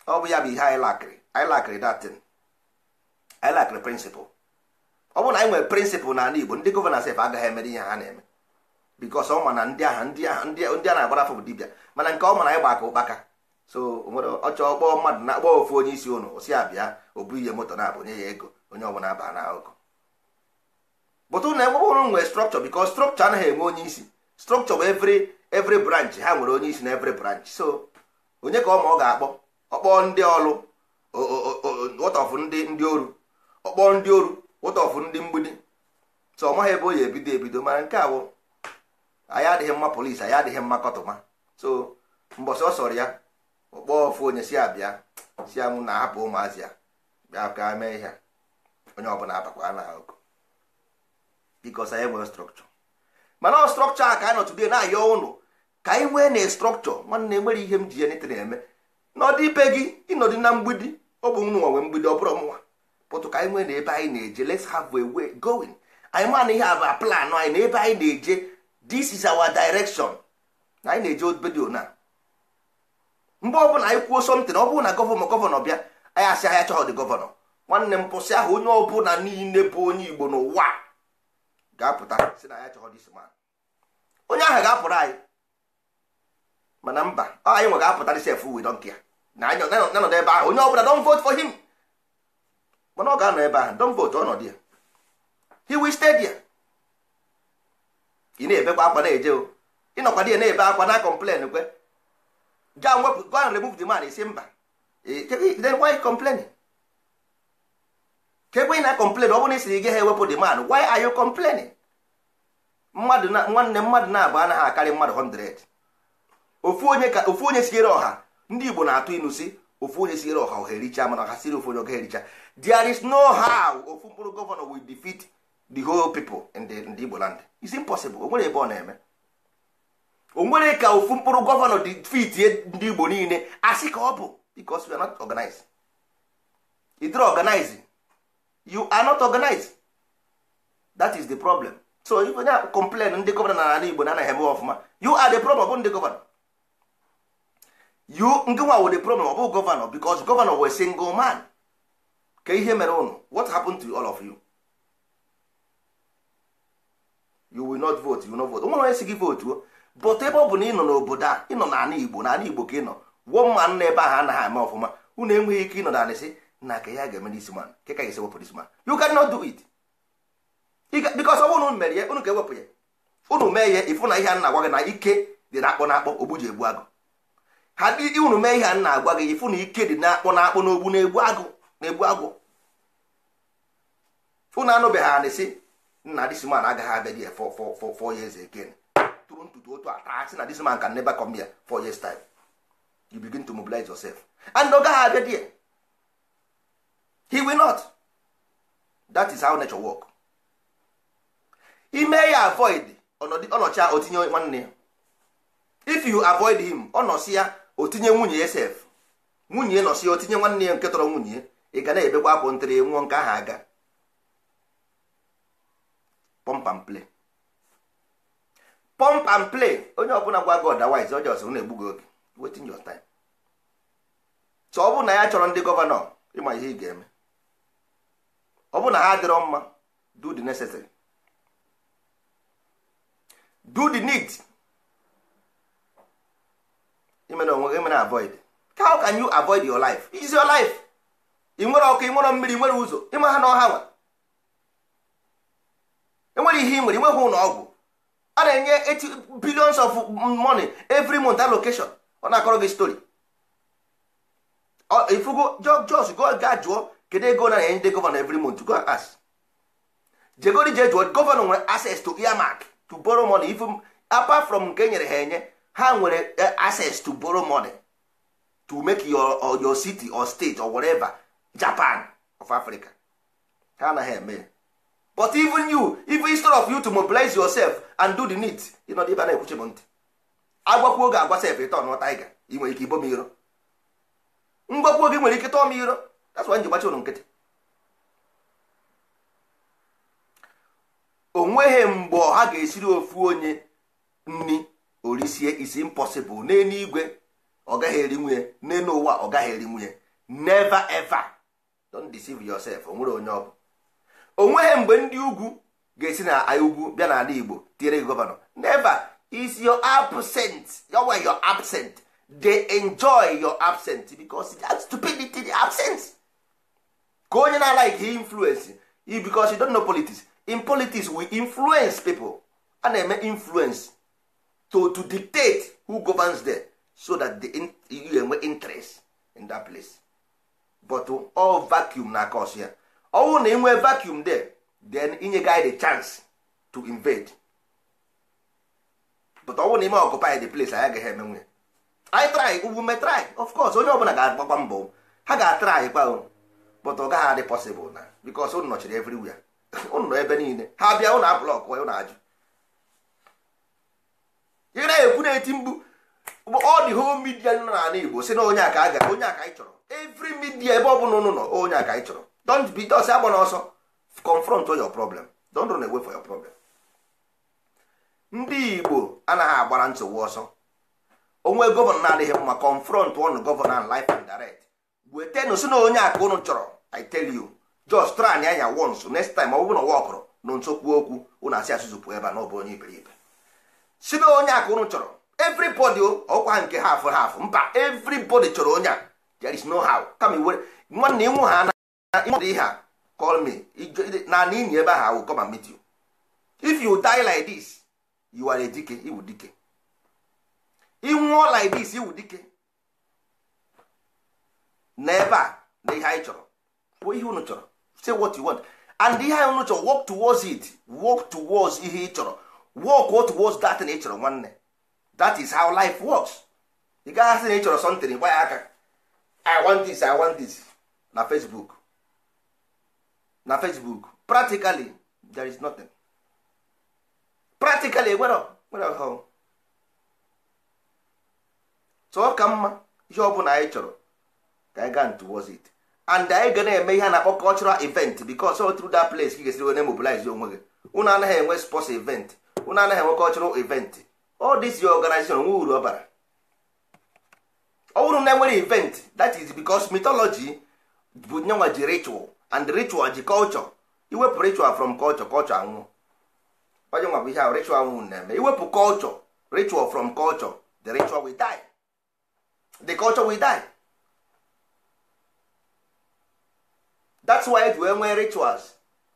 ọ bụ ya bụ ihe anyị lakịrị anyị datin anyị lakịrị principle ọ bụ na anyị nwere principle n'ala Igbo ndị gọvanọ sef agaghị emere ihe ha na-eme bikos ọ ma na ndị aha ndị aha ndị a na-agbara afọ bụ dibịa mana nke ọ ma na ịgba aka ụkpaka so nwere ọchọ kpọọ mmadụ na akpọ ofu onye isi ụnụ si abịa ah. o bụ ihe moto na-abụ nye ya ego onye ọbụla aba na akụkọ bụtụ na enwebụrụ nwere strọkchọ bikos strọkchọ anaghị enwe onye isi strọkchọ bụ evri evri branch ha nwere onye isi na evri branch so onye ka ọ ma ọ ga-akpọ ọkpọ ndị ọlụ wọtọfụ ndị ndị oru ọkpọ ndị oru wọtọfụ ndị mgbidi so ọ maghị ebe o ya ebido ebido mana nke a anyị adịghị mma polisi anyị adịghị mma kọtụma so mbọsị ọ sọrọ ya ọkpọọ ofu onye si abịa si ya mụ na ahapụ ụmụazị ya bịa ka mee ihe onye ọbụla abakwa na oku bikos anyị nwere strọkchọ mana ọ strọkchọ a ka anyị nọtụdie na-ayọ ụnụ ka anyị nwee na strọkchọ nwanne nwere ihe m ji ya na eme n'ọdị ibe gị ịnọdị na mgbidi ọ bụ nụ nwe mgbidi ọ bụrụ mụnwa pụtụ ka anyị nwee na ebe anyị na-eje les have a way going anyị ma na ihe a bụ plan anyị na ebe anyị na-eje this is our direction na anyị na-eji obedio na mgbe ọbụla anyị kwuo something ọ bụrụ na gọvanọ gọvanọ bịa anyị asị ahịa chọghọ dị gọvanọ nwanne m pụsị ahụ onye ọbụla niile bụ onye igbo n'ụwa ga-apụta si na ya chọghọ dis man onye ahụ ga-apụrụ anyị mana mba ọ anyị nwe ga-apụta disef we don kia na anya nanọdụ ebe ahụ onye ọbụla don vote for him mana ọ ga-anọ ebe ahụ don vote ọnọdụ ya he will stay there ị na-ebekwa akwa na-eje o ịnọkwa dị na-ebe akwa na kọmplen kwe ga wepụ go and remove the man isi mba then why complaining ka ekwe na complain ọ bụrụ na isiri gị ha ewepụ the man why are you complaining mmadụ na nwanne mmadụ na-abụ anaghị akarị mmadụ 100 ofu onye ka ofu onye siere ọha ndị Igbo na-atụ inu si ofu onye siere ọha ohe ericha mana ha siri ofu onye oge ericha there is no how ofu mkpụrụ gọvanọ will defeat the whole people in the in the Igbo land is impossible onwere ebe ọ na-eme onwere ka ofu mkpụrụ gọvanọ dị fitie ndị Igbo niile asị ka ọ bụ because we are not organized either organizing you are not organized that is the problem so if onye complain ndị gọvanọ na ala Igbo na anaghị eme ọfụma you are the problem ọ nde ndị gọvanọ you nke nwa the problem ọ bụ gọvanọ because gọvanọ were single man ka ihe mere ụnụ what happened to all of you you will not vote you will not vote nwere onye si gị votuo but ebe ọ bụ na ị nọ n'obodo a ị nọ n'ala igbo n'ala igbo ka ị nọ wụọ mma nna ebe ahụ anaghị ama ọfụma unu enweghị ike ịnọ na anịsị na ka ya ga-eme n'isi man ka ka esi wepụ n'isi man you cannot do it because ọ bụrụ unu mere ya unu ga-ewepụ ya unu mee ya ịfụ na ihe a na-agwa gị na ike dị na-akpọ na-akpọ ogbu ji egbu agụ ha dị unu mee ihe a na-agwa gị ịfụ na ike dị na-akpọ na-akpọ n'ogbu na-egbu agụ na-egbu agụ unu anụbeghị anịsị nna this man agaghị abịa there for for four years again tụrụ ntutu otu taa sị na dis man can never come here four years time you begin to mobilize yourself and ọ gaghị abịa there he will not that is how nature work ime ya avoid ọnọcha otinye nwanne ya if you avoid him ọ ya otinye nwunye ya sef nwunye nọsi ya otinye nwanne ya nke tọrọ nwunye ya ị ga na-ebekwa akwụ ntere nwụọ nke ahụ aga pump and play pump and play onye ọbụla gwa gị ọdawiz ọjọọ ọsọ na-egbu gị oge wetin your time so ọ bụ na ya chọrọ ndị gọvanọ ịma ihe ị ga-eme ọ bụ na ha adịrọ mma do the necessary do the need imere onwe gị imere avoid how can you avoid your life is your life ị nwere ọkụ ị nwere mmiri ị nwere ụzọ ịma ha na ọha nwa enwere ihe ị nwere inweghị ụlọ ọgwụ a na-enye billions of money every month allocation ọ na-akọrọ gị story ifugo jos ga jụọ kedu ego na enye ndị gọvanọ every month go ask jegori je jụọ gọvanọ nwere access to earmark to borrow money if apart from nke e nyere ha enye ha nwere eh, access to borrow money to make your, your city or state or whatever Japan of Africa ha anaghị eme but even you even instead of you to mobilize yourself and do the need ịnọdụ na-ekwuchi m ntị oge agwa sef ịtọ nụọ taiga nwere ike ibo m iro oge nwere ike tọọ m iro that's why ụlọ nkịtị o nweghị mgbe ọha ga-esiri ofu onye nni orisie is impossible n'elu igwe ọ eri nwunye n'elu ụwa eri nwunye never ever don't deceive o nwere onye onweghị mgbe ndị ugwu ga-esi na ugwu bịa n'ala igbo tinyere gị gọvanọ never is your absent yowe way absent dey enjoy your absent because that stupidity the absence ka onye na-alaiki influence because you don't know politics in politics we influence people a na-eme influence to to dictate who governs them so that the you enwe interest in that place but all vacuum na cause ya ọnwụ na inwe vacuum there then inye guy the chance to invade but ọnwụ na ime occupy the place anyị agaghị emenwe anyị try ugbu me try of course onye ọbụla ga-agbakwa mbọ ha ga-atry kwa but ọ gaghị adị possible na because ụnụ nọchiri everywhere ụnụ nọ ebe niile ha bịa ụnụ ablọk ụnụ ajụ ị na-ekwu na-eti mgbu ọ dị home media nọ n'ala Igbo si na onye aka a ga onye aka anyị chọrọ every midia ebe ọ bụla ụnụ nọ onye aka anyị chọrọ don't be dos agba ọsọ confront your problem don't run away for your problem ndị igbo anaghị agbara nsogbu ọsọ onwe gọvanọ na-adịghị mma confront one gọvanọ and life and direct wetenụ si na onye aka unu chọrọ i tell you just try anya anya once next time ọ bụrụ na ụwa ọkụrụ nso kwuo okwu ụnụ asị asụsụ pụọ ebe a na ọ onye iberibe si na onye aka unu chọrọ everybody ọkwa nke half half mba everybody chọrọ onye a there is no how kama iwere nwanne ịnwụ ha ihe a call me na n'ihi ebe ahụ I come and meet you if you die like this you are dike iwu dike ịnwụọ like this iwu dike na ebe a na ihe anyị chọrọ bụ ihe unu chọrọ say what you want and ihe anyị unu chọrọ work towards it work towards ihe ị chọrọ work towards that na ị chọrọ nwanne that is how life works ị gaghị asị na ị chọrọ something gba ya aka I want this I want this na Facebook na facebook practically there is nothing practically enwere ọhụụ so ọ ka mma ihe ọ bụla anyị chọrọ ka anyị gaa towards it and anyị ga na-eme ihe a na-akpọ cultural event because so through that place ka ị ga-esiri wee mobilize onwe gị unu anaghị enwe sports event unu anaghị enwe cultural event all this your organization nwe uru ọ bara ọ bụrụ na enwere event that is because mythology bụ nyenwa ji ritual and ritual ji culture iwepụ ritual from culture culture anwụ onye ihe ahụ ritual na-eme iwepụ culture ritual from culture the ritual will die the culture will die that's why wee nwee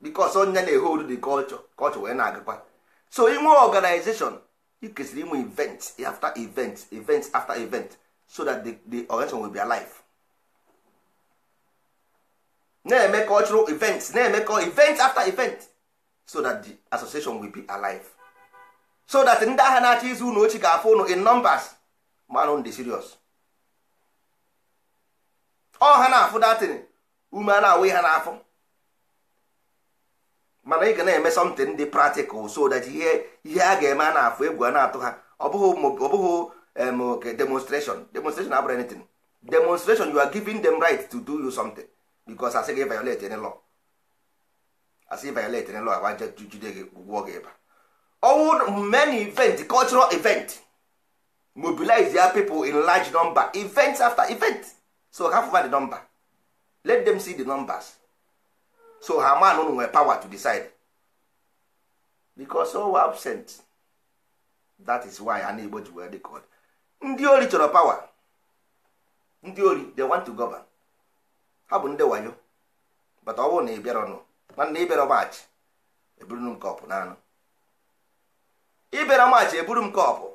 because onye na-ehold the culture culture na-agakwa so inwe organization you kesịrị inwe event after event event after event so that the, the organization na-eme cultural events na-emekọ event after event so that the association will be alive so that ndị agha na-achọ izu unu ochie ga-afụ unu in numbers manụ ndị serious ọ ha na-afụ datin ume a na-awụ ha n'afọ mana ị ga na-eme something dị practical so that ihe ihe a ga-eme a na-afụ egwu a na-atụ ha ọ bụghị demonstration demonstration abụrụ anything demonstration you are giving them right to do you something. because asị gị violate any law asị violate any law agwa jide gị ụgwọ gị ịba ọnwụ many event cultural event mobilize ya people in large number event after event so ha fụva the number let them see the numbers so ha man unu nwere power to decide because all absent that is why na igbo ji wee dị ka ndị ori chọrọ power ndị ori they want to govern ha bụ ndị wayo bata ọ bụrụ na ị bịarọnụ nwanne ịbịara maachị eburu m kọpụ n'anụ ịbịara maachị eburu m kọpụ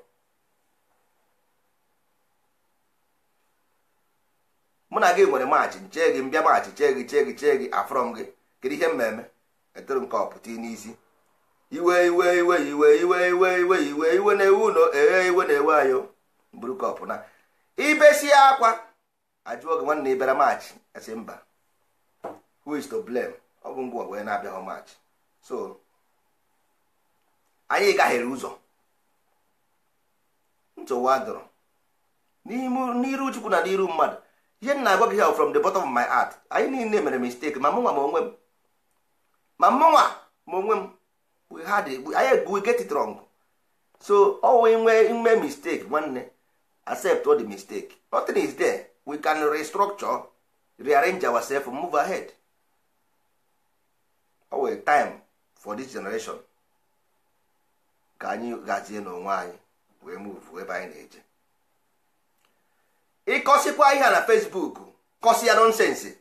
mụ na gị nwere maachị nche gị mbịa maachị chee gị chee gị chee gị afọrọ m gị kedu ihe mmemme etoro m e kọpụ tii n'isi iwe iwe iwe iwe iwe iwe iwe iwe iwe na-ewu ụlọ eghe iwe na-ewe ayo buru kọpụ na ibesie akwa ajụọ gị nwanne ịbịara maachị esi mba who is to blame ọ bụ ngwa wee na-abịaghị maachị so anyị gaghịrị ụzọ ntụwa dụrụ n'iru chukwu na n'iru mmadụ ihe m na-agwa gị ha from the bottom of my heart anyị niile mere mistake ma mụnwa ma onwe m ma mụnwa ma onwe m we had anyị we get it wrong so ọwụ inwe ime mistake nwanne accept all the mistake nothing is there we can restructure rearrange ourselves move ahead o time for this generation ka anyị gazie n'onwe anyị wee move ebe anyị na-eje ịkọsịkwa ihe na Facebook kọsị ya nonsense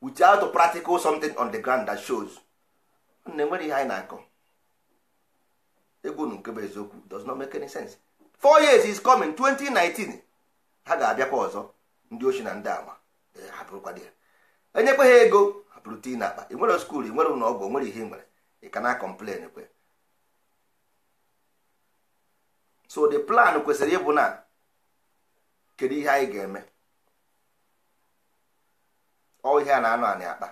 without practical something on the ground that shows na enwere ihe anyị na-akọ egwu nke bụ eziokwu does not make any sense four years is coming 2019 ha ga-abịakwa ọzọ ndị ochi na ndị ama eh, hapụrụkwa di ya enyekwa ha ego hapụrụ tii na akpa ị nwere skuul ị nwere ụlọ ọgwụ nwere ihe ị nwere ị ka na kọmplen kwe so the plan kwesịrị ịbụ na kedu ihe anyị ga-eme ọ ihe a na anọ anị akpa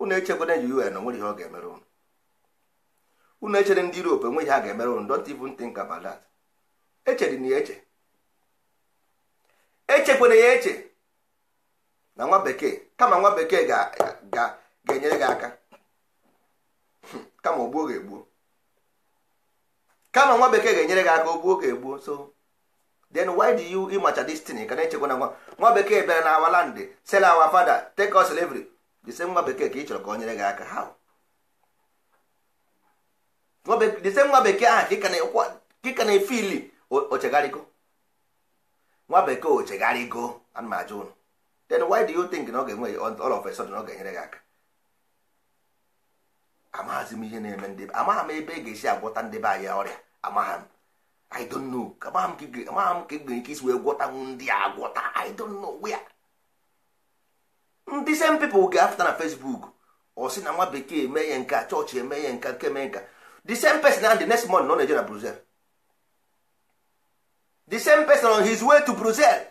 unu echekwena ji un nwere ihe ọ ga-emere ụnụ unu echere ndị Europe enweghị ha ga-emere ụnụ don't even think about that echere na ya eche echekwana ya eche na nwa bekee kama nwa bekee ga-enyere gị aka kama ogbuo ga-egbuo kama nwa bekee ga-enyere gị aka ogbuo ga-egbuo so then why do you ịmacha destiny ka na-echekwa na nwa nwa bekee bịara na awa land sell awa father take us slavery the same nwa bekee ka ị chọrọ ka o nyere gị aka how the same nwa bekee ahụ ka ka na-efili ochegharịgo nwa bekee o ego ana m ụnụ then why do you think na ọ ga-enwe all of a sudden ọ ga-enyere gị aka amaghazị m ihe na-eme ndị amaghị m ebe ị e ga-esi agwọta ndị be anyị ọrịa amaghị m i don't know amaghị m ka ị nwere ike isi wee gwọtanwu ndị a agwọta i don't know where ndị same people ga-apụta na Facebook ọ sị na nwa bekee eme ya nka chọọchị eme ya nka nke mee nka the same person and the next month nọ na-eje na Brussels the same person on his way to Brussels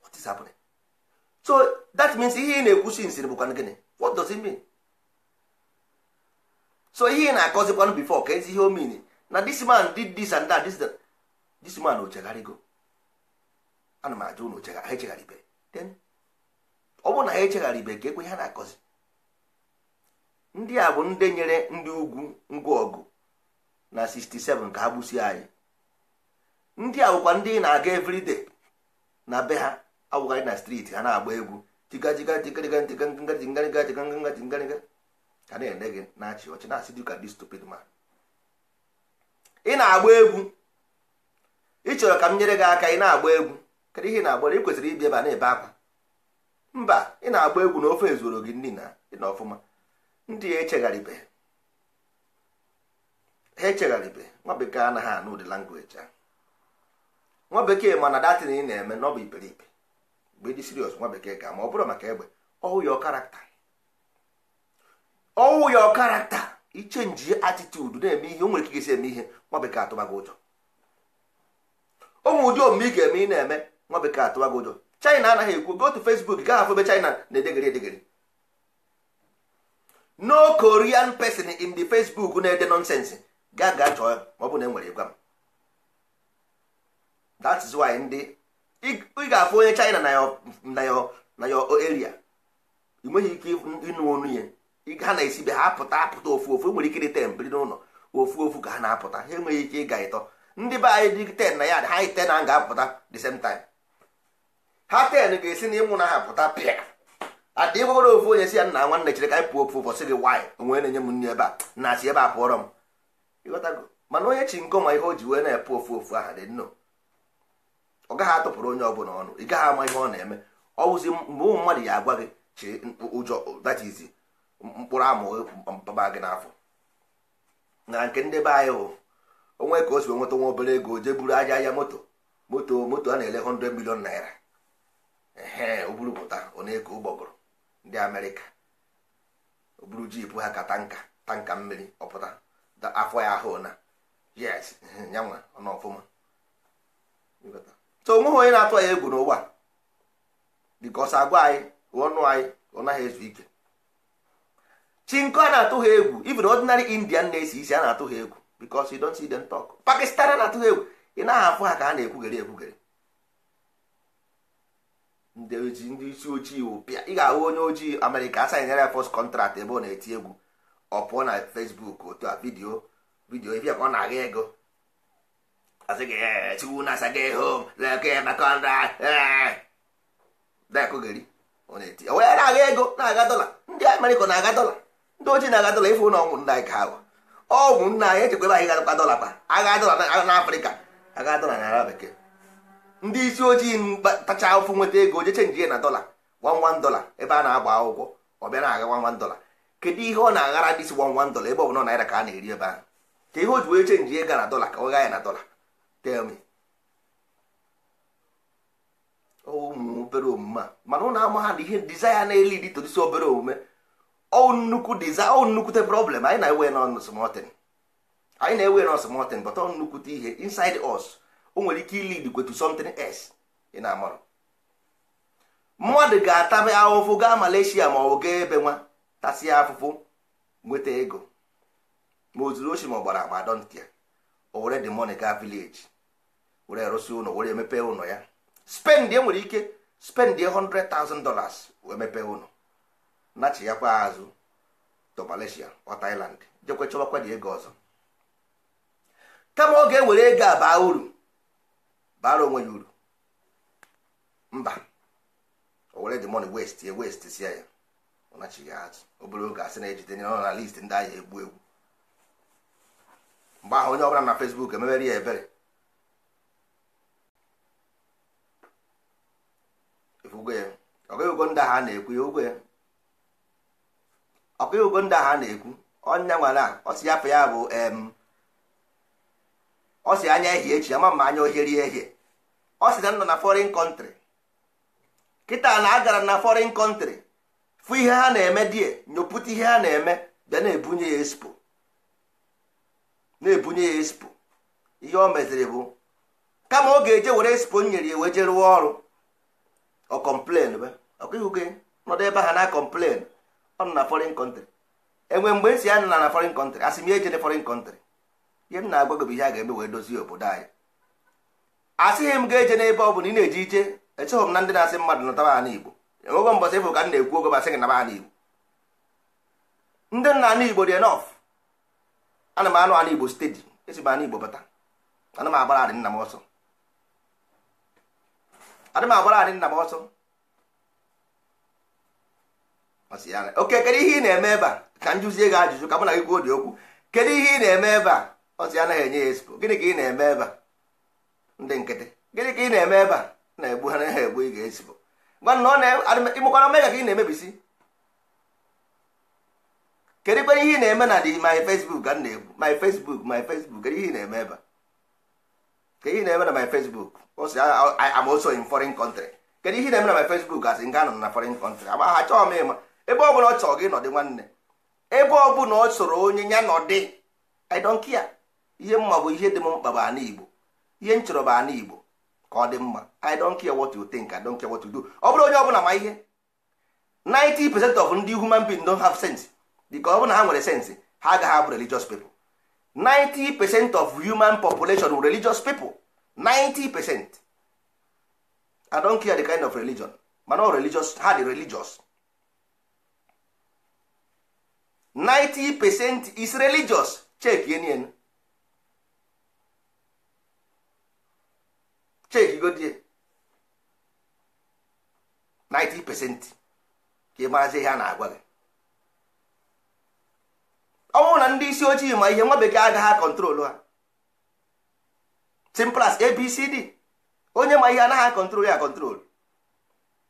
what is happening so that means ihe ị na ekwusi nsiri bụkwa gịnị what does it mean so ihe ị na-akọzikwanụ before ka ezi ihe o mean na this man did this and that this, this man ochegharịgo ana m ajụ ụnụ ha echegharịbe then ọ bụrụ na ha echegharịbe ka ekwe ha na-akọzi ndị a bụ ndị nyere ndị ugwu ngwa ọgụ na 67 ka ha gbusie anyị ndị a bụkwa ndị na-aga everyday na be ha awụgharị na striti ha na-agba egwu na-ene gị na-achị ọchị na-asị dịka dị stupid ma ị na-agba egwu ị chọrọ ka m nyere gị aka ị na-agba egwu kedu ihe ị na-agbara ị kwesịrị ibi ebe na-ebe akwa mba ị na-agba egwu na ofe ezuro gị nri na ọfụma ndị ya echegharịbe ha echegharịbe nwa bekee anaghị anụ ụdị nwa bekee mana datin ị na-eme na ọ bụ iperipe mgbe ịdị sirios nwa bekee ga ma ọ bụrụ maka egbe ọwụ ya karakta ọwụ ya karakta ichenji atitudu na-eme ihe o nwere ike eme ihe nwa bekee atụbago ụjọ ụmụ ụdị omume ị ga-eme ị na-eme nwa bekee atụbago ụjọ china anaghị ekwu go to facebook gaa afọ ebe china na-edegere edegre no korean person in the facebook na-ede nonsense gaa gaa chọọ ma ọ bụ na enwere ịgwa m that is why ndị ị ga-afụ onye China na na yo area ị ike ịnụ onu ya ha na-esibe ha apụta apụta ofu ofu e nwere ike dị ten biri n'ụlọ ofu ofu ka ha na-apụta ha enweghị ike ịga ịtọ ndị be anyị dị ten na ya ha anyị ten na ga-apụta the same time ha ten ga-esi na ịnwụ na ha pụta pịa adị gwagoro ofu onye si ya nna nwanne chere ka anyị pụọ ofu ụbọchị gị nwaanyị onwe na-enye m nri ebe a na-asị ebe a pụọrọ m mana onye chi nkọ ma ihe o ji wee na-epụ ofu ofu aha dị nnọọ ọ gaghị atụpụrụ onye ọbụla ọnụ ị gaghị ama ihe ọ na-eme ọ wụzi mgbe ụmụ mmadụ ya agwa gị chee ụjọ datizi mkpụrụ amụghị mpaba gị n'afọ na nke ndị be anyị hụ onwe ka o si nweta nwa obere ego jee buru aja ahịa moto moto moto a na-ele 100 milion naira ee o pụta ọ na ụgbọgụrụ ndị amerịka oburu buru jipụ ha ka tanka tanka mmiri ọpụta afọ ya ahụ na yes nyanwa ọ ọfụma so onweghị onye na-atụ anyị egwu n'ụwa bikos agwa anyị ọnụ anyị ọ naghị ezu ike chinko a na-atụ ha egwu even ordinary indian na-esi isi a na-atụ ha egwu bikos you don't see them talk pakistan a na-atụ ha egwu ị naghị afụ ha ka a na-ekwugere ekwugere ndị isi ojii wụpịa ị ga-ahụ onye ojii amerịka asanyere ya post contract ebe ọ na-eti egwu ọ pụọ na fesbuk otu a vidio vidio ebe ka ọ na-agha ego as na-aga ego na-aga dọla ndị amerịka na-aga dọla ndị ojii na-aga dọla ife ụlọ ọgwụ nna anyị ka agwa ọgwụ nna anyị echekwebe anyị gadọkwa dọla pa agha dọla na afrịka dọla na ara bekee ndị isi ojii tacha ụfụ nweta ego jeche nje na dọla wanwan dọla ebe a na-agba akwụkwọ ọ bịa na-aga wanwan dọla kedu ihe ọ na-aghara dị isi wanwan dọla ebe ọ bụla naira ka a na-eri ebe ahụ ka ihe o ji wee chenji ego na dọla ka ọ gha ya na dọla tell me ụmụ oh, obere omume a mana ụnụ ama ha na ihe dizaya na-eli dị todisi obere omume ọ nnukwu diza ọ nnukwute problem anyị na-ewe na osmotin anyị na-ewe na osmotin but ọ nnukwute ihe inside us o nwere ike ilid kwe to something else ị na-amarụ mmadụ ga-atabe ahụfụ gaa Malaysia ma ọ gaa ebe nwa tasịa afụfụ nweta ego ma o zuru oshi ma ọ gbara agba dọntia o were the money gaa village were arụsị ụlọ were emepe ụlọ ya spendie nwere ike spendie 100,000 dollars wee mepee ụlọ kwa azụ to Malaysia ọ Thailand jekwe chọbakwa dị ego ọzọ kama ọ ga-ewere ego a baa uru baara onwe ya uru mba o were the money waste ya waste sia ya ọ nachighị azụ obere oge asị na-ejide na list ndị ahịa egbu egbu mgbe ahụ onye ọbụla na Facebook emebere ya ebere ụgwọ ya ọkụghị ndị agha a na-ekwu ya ụgwọ ya ọkụghị ndị a na-ekwu ya ya bụ ọsị anya ehi echi ama ma anya ohieri ehie ọ na nọ na foreign country kịta na agara na foreign country fụ ihe ha na-eme die nyopụta ihe ha na-eme bịa na-ebunye ya espo na-ebunye ya espo ihe o meziri bụ kama ọ ga-eje were espo nyere ya wee je rụọ ọrụ ọ kọmplen be ọkwa gị nọdụ ebe ha na kọmplen ọ na foreign kọntrị enwe mgbe e si ya na na foreign asị m ya ejene foreign kọntrị ihe m na-agwa gị bụ ihe a ga-eme wee dozie obodo anyị asịghị m ga-eje n'ebe ọ bụla ị na-eje ije echeghị m na ndị na-asị mmadụ nọtaba ana igbo enwego mbọsị efu ka m na-ekwu ogo basị gị naba ana igbo ndị nna ana igbo dị enof ana m anụ anụ igbo stedi esi m anụ igbo bata ana m agbara adị nna m ọsọ adị m agbara anyị nna m ọsọ oke kedu ihe ị na-eme ebe a ka m jụzie gị ajụjụ ka mụ na gị kwuo dị okwu kedu ihe ị na-eme ebe a ọsị anaghị enye ya espo gịnị ka ị na-eme ebe a ndị nkịtị gịnị ka ị na-eme ebe a na-egbu ha naghị egbu ị ga-espo ịmụkwara mmega ka ị na-emebisi kedu kwere ihe ị na-eme na dị my Facebook ka m na-egbu my Facebook my Facebook kedu ihe ị na-eme eh, ebe a ka ihe na-eme na my Facebook am also in foreign country kedu ihe na-eme na my Facebook asị nga anọ na foreign country agba ha chọọ m ịma ebe ọbụla ọ chọrọ gị nọdị nwanne ebe ọbụla ọ soro onye ya nọdị I don't care ihe mma bụ ihe dị m mkpa bụ ana Igbo ihe m chọrọ bụ ana Igbo ka ọ dị mma I don't care what you think I don't care what you do ọ bụrụ onye ọbụla ma ihe 90 percent of ndị human being don't have sense dịka ọ bụrụ na ha nwere sense ha agaghị abụ religious people 90 percent of human population were religious people 90 i don't care the kind of religion but ọ religious ha dị religious 90 percent is religious check yenien check godie 90 percent ka ị maazi ihe a na-agwa gị ọnwụ na ndị isi ojii ma ihe nwa bekee agaghị akọntrolu ha simple as abcd onye ma ihe anaghị akọntrolu ya akọntrolu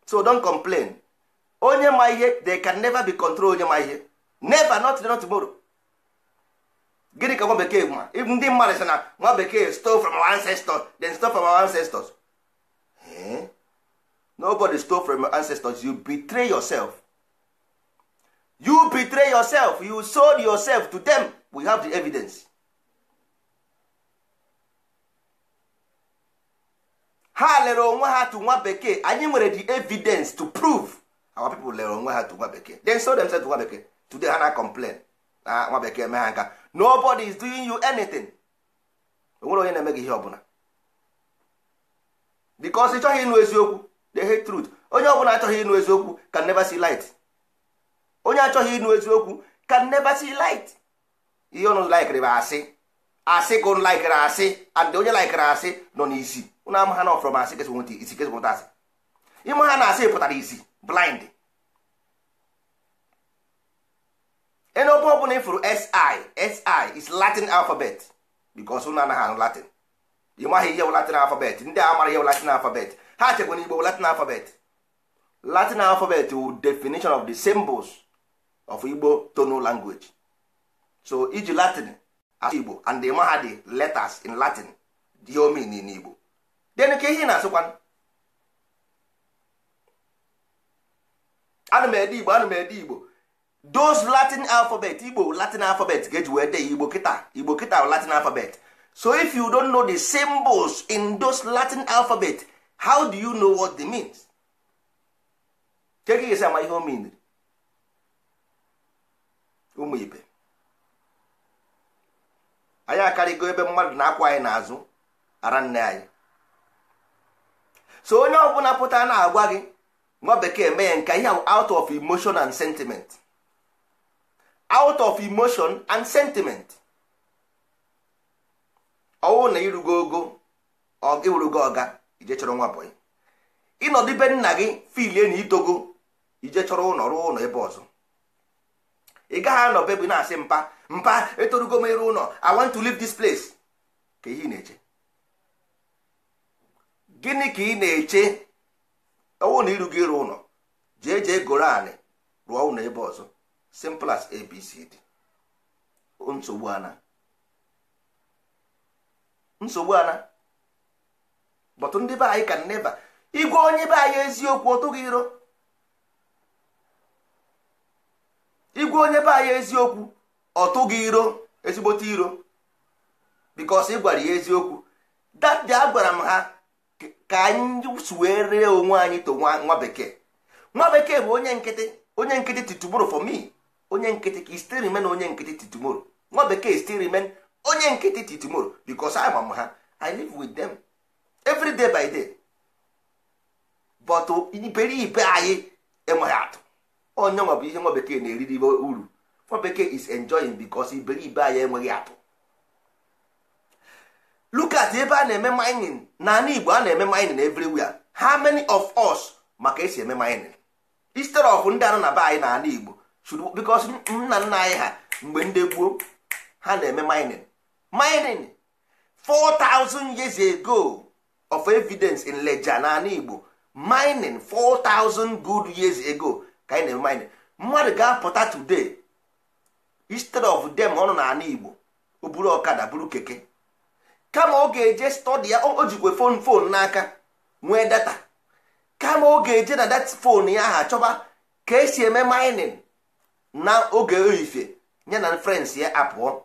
so don complain onye ma ihe they can never be control onye ma ihe never not not tomorrow gịnị ka nwa bekee ma ndị mmadụ sị na nwa bekee stole from our ancestors then stole from our ancestors eh? nobody stole from your ancestors you betray yourself you betray yourself you sold yourself to them we have the evidence ha lere onwe ha to nwa bekee anyị nwere the evidence to prove our people lere onwe ha to nwa bekee they sold themselves to nwa bekee today ha na complain na nwa bekee mee ha nka nobody is doing you anything onwere onye na-eme gị ihe ọbụla because ị chọghị ịnụ eziokwu the hate truth onye ọbụla achọghị ịnụ eziokwu can never see light onye achọghị ịnụ eziokwu can never see light ihe ọnụ laikịrị bụ asị asị ka ụnụ laikịrị asị and onye laikịrị asị nọ n'isi ụnụ ama ha na ọfọrọ ma asị kesị nweta isi kesị nweta asị ịma na asị pụtara isi blind ene ọbụ ọbụla ịfụrụ si si is latin alphabet because ụnụ anaghị anụ latin ịmaghị ihe bụ latin alphabet ndị a mara ihe bụ latin alphabet ha chekwa na igbo latin alphabet latin alphabet wụ definition of the symbols of igbo tonal language so iji latin as igbo and the mahadi letters in latin dị omen in igbo then ka ihe na-asịkwa ana m ede igbo ana m ede igbo those latin alphabet igbo latin alphabet ga-eji wee dee igbo kịta igbo kịta latin alphabet so if you don't know the symbols in those latin alphabet how do you know what they means? ke gị ihe mean ụmụ ibe anyị akarịgo ebe mmadụ na-akwụ anyị n'azụ ara nne anyị so onye ọbụla pụta na-agwa gị nwa bekee mee ya nke ihe out of emotion and sentiment out of emotion and sentiment ọwụ na irugo ogo ọga ije chọrọ nwa ịnọdụ nna gị filie na itogo ije chọrọ ụlọ rụọ ụlọ ebe ọzọ ị gaghị anọ bebụ na-asị mpa mpa etorugo m ịrụ ụlọ i want to leave this place ka ihe na-eche gịnị ka ị na-eche ọwụ na iru gị ịrụ ụlọ jee jee goro anị rụọ ụlọ ebe ọzọ simple as abcd nsogbu ana nsogbu ana bọtụ ndị be anyị ka nneba igwe onye be anyị eziokwu ọtụghị iro igwe onye be anyị eziokwu ọtụ gị iro ezigbote iro bikos ị gwara ya eziokwu dadi agwara m ha ka anyị suwee ree onwe anyị to nwa bekee nwa bekee bụ onye nkịtị onye nkịtị titumoro for me onye nkịtị ka still remain onye nkịtị titumoro nwa bekee still remain onye nkịtị titumoro bikos ama m ha i live with them every day by day but iberibe anyị enweghị atụ onye nwa bụ ihe nwa bekee na-eriri uru nwa bekee is enjoying because iberibe anyị enweghị atụ look ebe a na-eme mining n'ala Igbo a na-eme mining everywhere how many of us maka esi eme mining instead of ndị anọ na be anyị n'ala Igbo should nna nna anyị ha mgbe ndị gboo ha na-eme mining mining 4000 years ago of evidence in Leja n'ala Igbo mining 4000 good years ago ka anyị na-eme mmadụ ga-apụta today instead of dem ọ na ala igbo o buru ọkada buru keke kama ọ ga-eje stọdi ya o jikwe fon fon n'aka nwee data kama ọ ga-eje na data fon ya ha chọba ka esi eme minin na oge oyife ya na frens ya apụọ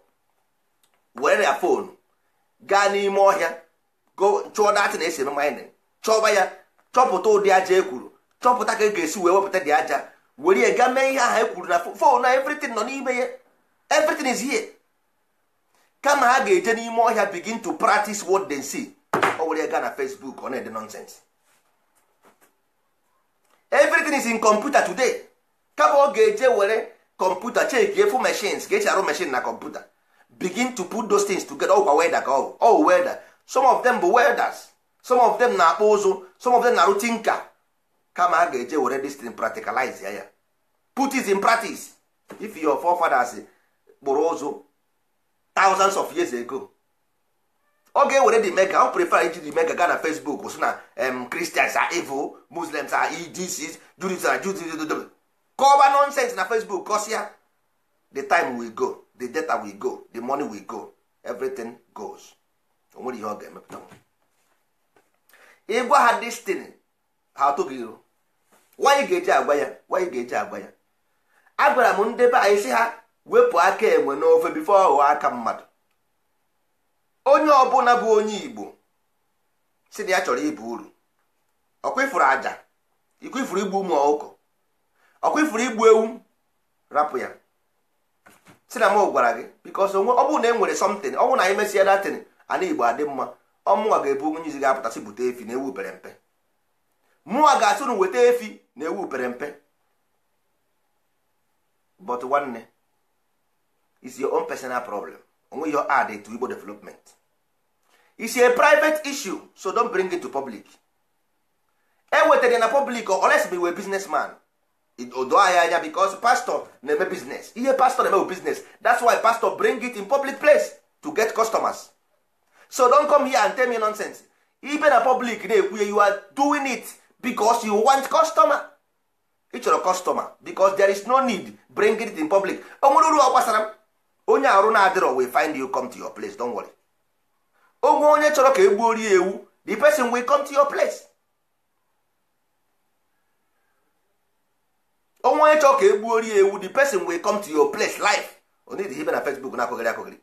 were ya fonu gaa n'ime ọhịa chụọ na esi eme mining chọba ya chọpụta ụdị aja ekwuru chọpụta ka e ga-esi wee wepụta dị aja were ya ga mee ihe aha e kwuru na fon na everything nọ n'ime ya everything is here kama ha ga-eje n'ime ọhịa begin to practice what they see ọ were ya gaa na Facebook ọ na-ede nonsense everything is in computer today kama ọ ga-eje were kọmputa chekie fụ machines ga-echi arụ machine na kọmputa begin to put those things together ọkwa welder ka ọ wụ weather some of them bụ welders some of them na-akpụ ụzụ some of them na-arụ tinka kama a ga-eje were this thing practicalize ya ya put is in practice if your forefathers kpụrụ ụzụ thousands of years ago ọ ga-ewere the mega o prefer iji the mega gaa na Facebook so na Christians are evil Muslims are e, this Jews are Jews kọba nonsense na Facebook ya the time we go the data we go the money we go everything goes o nwere ihe ọ ga-emepụta ịgwa ha destin ha atụghị iru nwaanyị ga-eji agwa ya nwaanyị ga-eji agwa ya gwara m ndị be anyị sị ha wepụ aka enwe n'ofe bifo ọghọ aka mmadụ onye ọbụla bụ onye igbo si na ya chọrọ ịbụ uru ọkwa ifuru aja ifuru igbu ụmụ ọkụkọ ọkwa ifuru igbu ewu rapụ ya si na m gwara gị bikos onwe ọ bụrụ na e nwere somtin ọ na anyị mesịa datin ana igbo adị mma ọmụnwa ga-ebu onye izi ga-apụtasị bute efi na ewu pere mpe mụnwa ga-asị unu weta efi na ewu pere mpe but nwanne is your own personal problem onwe your add to Igbo development is a private issue so don't bring it to public ewetara na public unless be business man odo ahịa anya because pastor na-eme business ihe pastor na-eme business that's why pastor bring it in public place to get customers so don't come here and tell me nonsense ibe na public na-ekwu you are doing it because you want customer ị chọrọ customer because there is no need bring it in public o nwere uru ọ gbasara m onye arụ na-adịrọ we find you come to your place don't worry onwe onye chọrọ ka egbuo rie ewu the person will come to your place onwe onye chọrọ ka egbuo rie ewu the person will come to your place onye onidi ibe na Facebook na-akụghịrị akụghịrị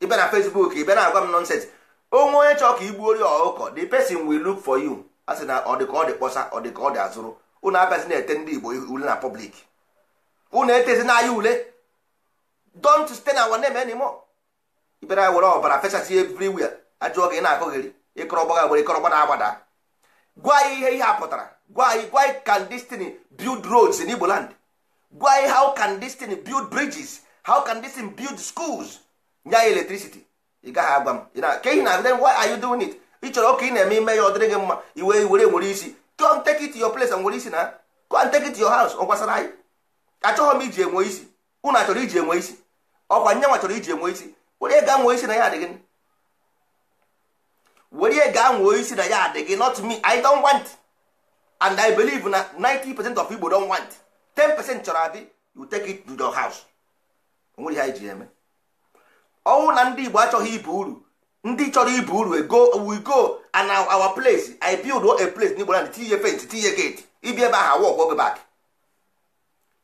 ibe na Facebook ibe na-agwa m nonsense onwe onye chọrọ ka igbuo rie ọkụkọ the person will look for you a na ọ dị ka ọ dị kpọsa ọ dị ka ọ dị azụrụ unu abịazi na-ete ndị igbo ule na pọblik unu etezi n'anya ule don't stay na one name anymore ibere anyị were ọbara fesasị everywhere ajụọ gị na-akụgheri ịkọrọ ọgbaga gbere ịkọrọ ọgbada agbada gwa anyị ihe ihe a pụtara gwa anyị gwa anyị can destiny build roads in Igbo gwa anyị how can destiny build bridges how can destiny build schools nye anyị electricity ị gaghị agwa m ke ihe na then why are you doing it ị chọrọ ka ị na-eme ime ya ọ dịrị gị mma iwe were nwere isi come take it your place nwere isi na come take it your house ọ gwasara anyị Achọghị m iji enwe isi unu achọrọ iji enwe isi ọkwa nyanwa chọrọ iji enwe isi were ga nwe isi na ya adịghị were ga nwe isi na ya adịghị not me i don't want and i believe na 90 percent of igbo don want 10 percent chọrọ adị you take it to your house onwere ihe anyị eme ọnwụ na ndị igbo achọghị ibu uru ndị chọrọ ibu uru go we go and our place i build a place n'igbo land tinye fent tinye gate ibi ebe ahụ awọ ọgbọbe bak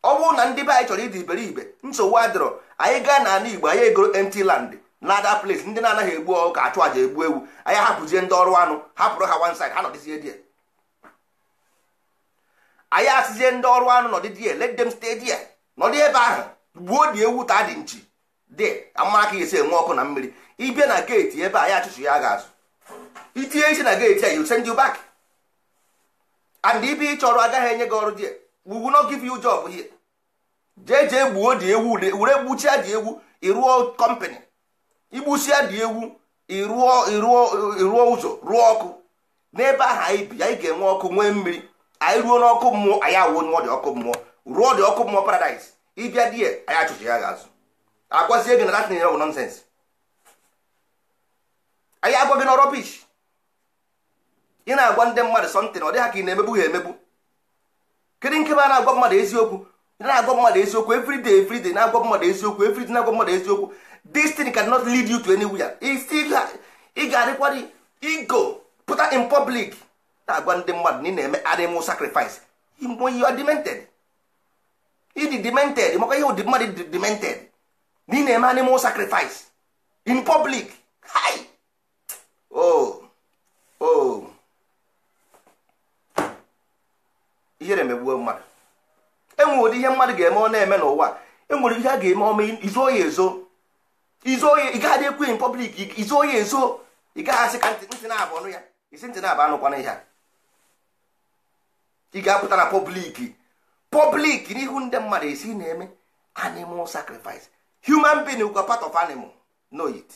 ọ bụrụ na ndị be anyị chọrọ ịdị iberibe nsogbu adịrọ anyị gaa na ana igbo anyị egoro empty land na ada place ndị na-anaghị egbu ka achụ aja egbu ewu anyị hapụzie ndị ọrụ anụ hapụrụ ha one side ha nọdịzie die anyị asịzie ndị ọrụ anụ nọdị die let them stay die nọdị ebe ahụ gbuo dị ewu ta dị nchi dị amara ka esi enwe ọkụ na mmiri ịbịa na geeti ebe a ya achụchụ ya ga-azụ itinye isi na geeti a you send you back and ibe ị chọrọ agaghị enye gị ọrụ dị we will give you job here jee jee gbuo dị ewu were gbuchia dị ewu ịrụọ kọmpanị igbusia dị ewu ịrụọ ịrụọ ụzọ rụọ ọkụ n'ebe ahụ anyị bi anyị ga-enwe ọkụ nwee mmiri anyị ruo n'ọkụ mmụọ anyị awụọ ọkụ mmụọ rụọ dị ọkụ mmụọ paradaịs ịbịa di ya anyị achụchụ ya ga-azụ agwazie gị na datin bụ nọnsens anyị agwa gị na rọbish ị na-agwa ndị mmadụ sọntịn ọ dị ha ka ị na-emegbu ha emegbu kedu nke a na-agwa mmadụ eziokwu ị na-agwa mmadụ eziokwu everyday everyday na-agwa mmadụ eziokwu everyday na-agwa mmadụ eziokwu this thing cannot lead you to anywhere ị ga-adịkwa ego pụta in public na-agwa ndị mmadụ na ị na-eme animal sacrifice mgbe you are demented ịdị demented maka ihe ụdị mmadụ dị demented na ị na-eme animal sacrifice in public hi oh oh ihere megbuo mmadụ enwere ụdị ihe mmadụ ga-eme ọ na-eme n'ụwa enwere ihe a ga-eme ọma izo ya ezo izo ya ị gaghị ekwu in public izo ya ezo ị gaghị ka ntị na-abụ ọnụ ya isi ntị na-abụ anụkwana ihe a ị ga-apụta na public public n'ihu ndị mmadụ esi na-eme animal sacrifice human being were part of animal know it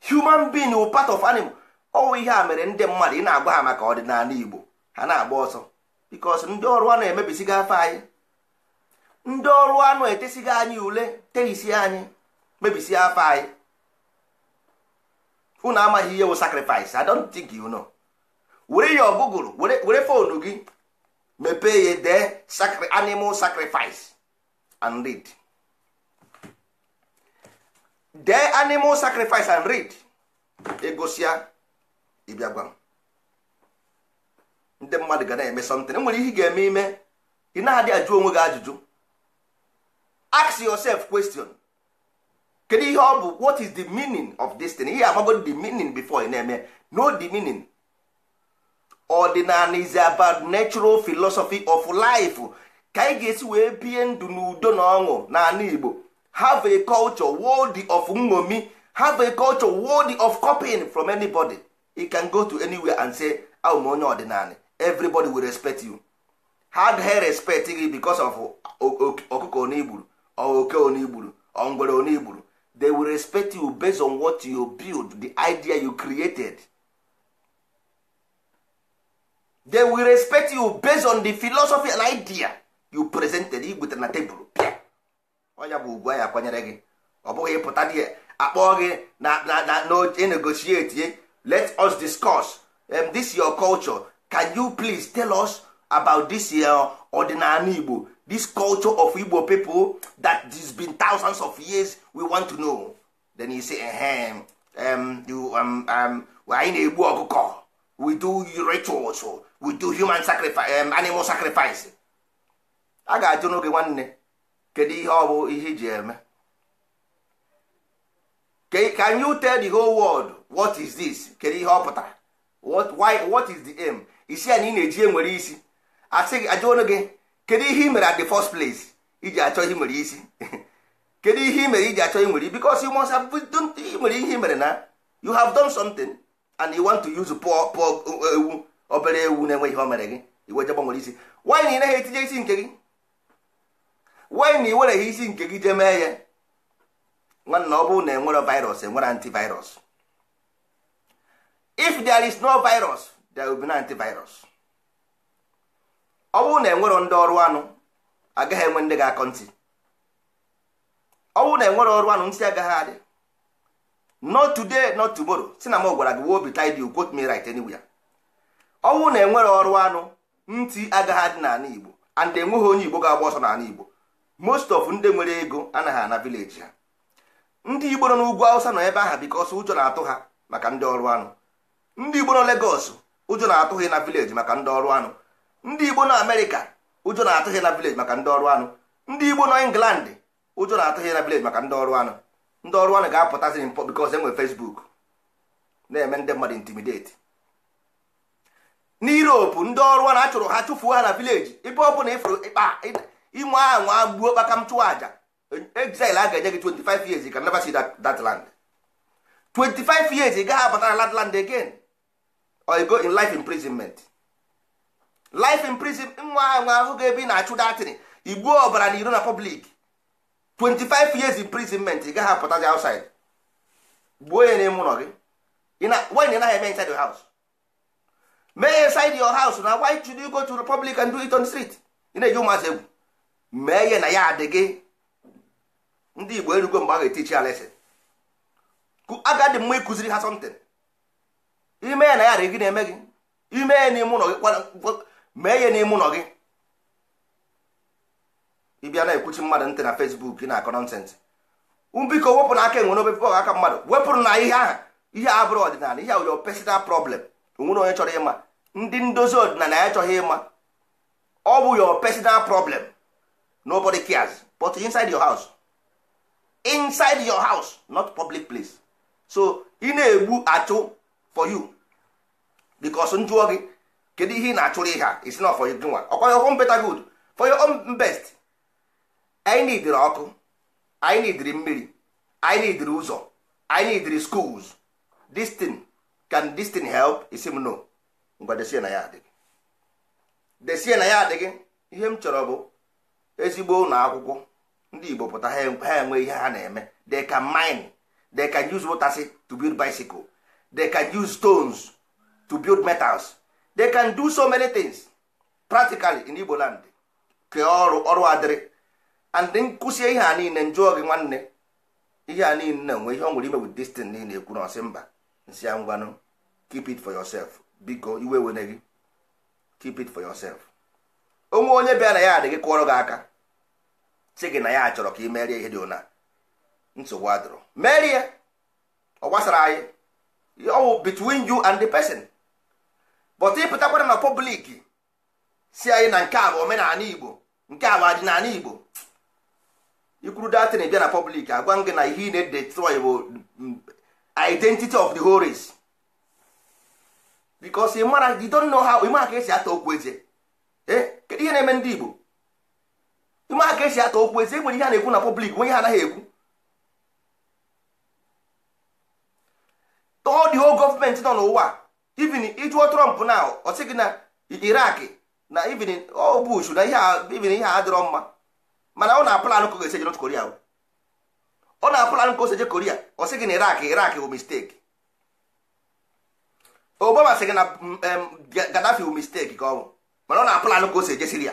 human being were part of animal ọwụ ihe a mere ndị mmadụ ị na-agba ha maka ọdịnala igbo ha na-agba ọsọ because ndị ọrụ anụ emebisigo afọ anyị ndị ọrụ anụ etesigo anyị ule terisi anyị mebisi afọ anyị unu amaghị ihe wụ sacrifice I don't think you know were ya ọgụgụrụ were fonu gị mepee ya dee animal sacrifice and read. dee animal sacrifice and read egosia ịbịa ndị mmadụ ga na-eme something nwere ihe ị ga-eme ime ị na-adị ajụ onwe gị ajụjụ ask yourself question kedu ihe ọ bụ what is the meaning of this thing ihe amagbo the meaning before ị na-eme no the meaning ordinary is about natural philosophy of life ka ị ga-esi wee bie ndụ n'udo na ọṅụ n'ala Igbo have a culture worthy of ngomi have a culture worthy of copying from anybody you can go to anywhere and say abụ m onye ọdịnala everybody will respect you hard hair respect gị because of ọkụkọ onigburu oke onigburu ongwere onigburu they will respect you based on what you build the idea you created they will respect you based on the philosophy and idea you presented igwetere na tebụl ọnya bụ ugwu anyị akwanyere gị ọ bụghị ịpụta dị akpọọ gị na-negotiate let us discuss um, this your culture can you please tell us about this your ọdịnala Igbo this culture of Igbo people that has been thousands of years we want to know then he say ehem um, you, um, um, anyị na-egbu ọkụkọ we do rituals we do human sacrifice um, animal sacrifice a ga-ajụ n'oge nwanne kedu ihe ọ bụ ihe iji eme can you tell the whole world what is this kedu ihe ọ pụtara what why what is the aim e isi anyị na-eji enwere isi asị gị ajụọnụ gị kedu ihe ị mere at the first place iji achọ ihe nwere isi kedu ihe ị mere iji achọ nwere because you must have done nwere ihe mere na you have done something and you want to use poor poor ewu obere ewu na-enweghị ihe o mere gị iwe je isi why na ị naghị etinye isi nke gị wee na ị iwereghị isi nke gị jee mee ya nwanna ọ bụrụ na enwere virus enwere antivirus if there is no virus there will be no antivirus ọ bụrụ na enwero ndị ọrụ anụ agaghị enwe ndị ga-akọ ntị ọ bụrụ na enwere ọrụ anụ ntị agaghị adị not today not tomorrow si na m gwara gị wobi tidy you quote me right anywhere ọ bụrụ na enwere ọrụ anụ ntị agaghị adị n'ala Igbo and enweghị onye Igbo ga-agba ọsọ n'ala Igbo most of ndị nwere ego anaghị ana vileji ha ndị igbo nọ n'ugwu awụsa nọ ebe aha bikos ụjọ na-atụ ha maka ndị ọrụ anụ ndị igbo nọ legos ụjọ na-atụ ha na vileji maka ndị ọrụ anụ ndị igbo nọ amerịka ụjọ na-atụ ha na vileji maka ndị ọrụ anụ ndị igbo nọ england ụjọ na-atụ ha na vileji maka ndị ọrụ anụ ndị ọrụ anụ ga-apụtazi mpọ bikos enwe fesbuk na-eme ndị mmadụ intimideti n'Europe ndị ọrụ anụ a chụrụ ha chụfuo ha na vileji ebe ọ bụla ịfụrụ ịkpa inwe ahụ agbuo kpaka m exile a ga-enye gị 25 years ka never see that, land 25 years ị gaghị abata na land again or you go in life imprisonment life imprisonment nwa ahụ ahụ ga ebi na-achụ datin igbuo ọbara na iro na public 25 years imprisonment ị gaghị the outside gbuo ya n'ime ụlọ gị why na anaghị eme inside your house mee inside your house na why should you go to the public and do it on the street ị na-eji ụmụazị egwu mee ihe na ya adị gị ndị igbo erugo mgbe a ga-etichi ya lesin agadi mma ịkụziri ha sọmtin ime ya na ya adị gị na-eme gị ime ya n'ime ụlọ gị mee na n'ime ụlọ gị ịbịa na-ekwuchi mmadụ ntị na fesbuk ị na-akọ nọnsensị biko wepụ n'aka enwere n'obepe ọha aka mmadụ wepụrụ na ihe ahụ ihe a bụrụ ọdịnala ihe awụyo pesinal problem onwere onye chọrọ ịma ndị ndozi ọdịnala ya chọghị ịma ọ bụ yọ pesinal nobody cares but inside your house inside your house not public place so ị na-egbu achụ for you because m jụọ gị kedu ihe ị na-achụrụ ihe a not for you nwa ọkwa your own better good for your own best anyị nidiri ọkụ anyị nidiri mmiri anyị nidiri ụzọ anyị nidiri schools this thing can this thing help isi m no ngwa desie na ya adịghị desie na ya adịghị ihe m chọrọ bụ ezigbo ụlọ akwụkwọ ndị igbo pụta ha enwe ihe ha na-eme they can mine they can use motors to build bicycle they can use stones to build metals they can do so many things practically in igbo land kee ọrụ ọrụ adịrị and nkụsie ihe a niile njụọ gị nwanne ihe a niile na-enwe ihe ọ nwere ime with this thing na ekwu na ọsị mba nsị ya ngwanụ keep it for yourself biko iwe wene gị keep it for yourself onwe onye bịa na ya adịghị kụọrọ gị aka si gị na ya chọrọ ka ị merie ihe dị ụna nsogbu adụrụ merie ọ gbasara anyị ọwụ between you and the person but ịpụtakwara na public si anyị na nke a bụ omenala igbo nke a bụ adịnala igbo ikwuru datin bịa na public agwa gị na ihe ị na-edetry bụ mm, identity of the horis race because ị mara you don't know how ka esi ata okwu eze ihe na-eme ndị Igbo ịma ka esi ata okwu ezi enwere ihe a na-ekwu na pọblik nwe ihe anaghị ekwu tọọ the whole gọọmenti nọ n'ụwa even ịjụọ Trump na ọ sị gị na Iraq na even ọ Bush na even ihe a adịrọ mma mana ọ na-apụlanụ ka ọ ga-esi eje Korea ọ na-apụlanụ ka osi si koria Korea ọ sị gị na Iraq Iraq bụ mistake Obama sị gị na mm, Gaddafi bụ mistake ka ọ mana ọ na-apụlanụ ka o si ejesiri ya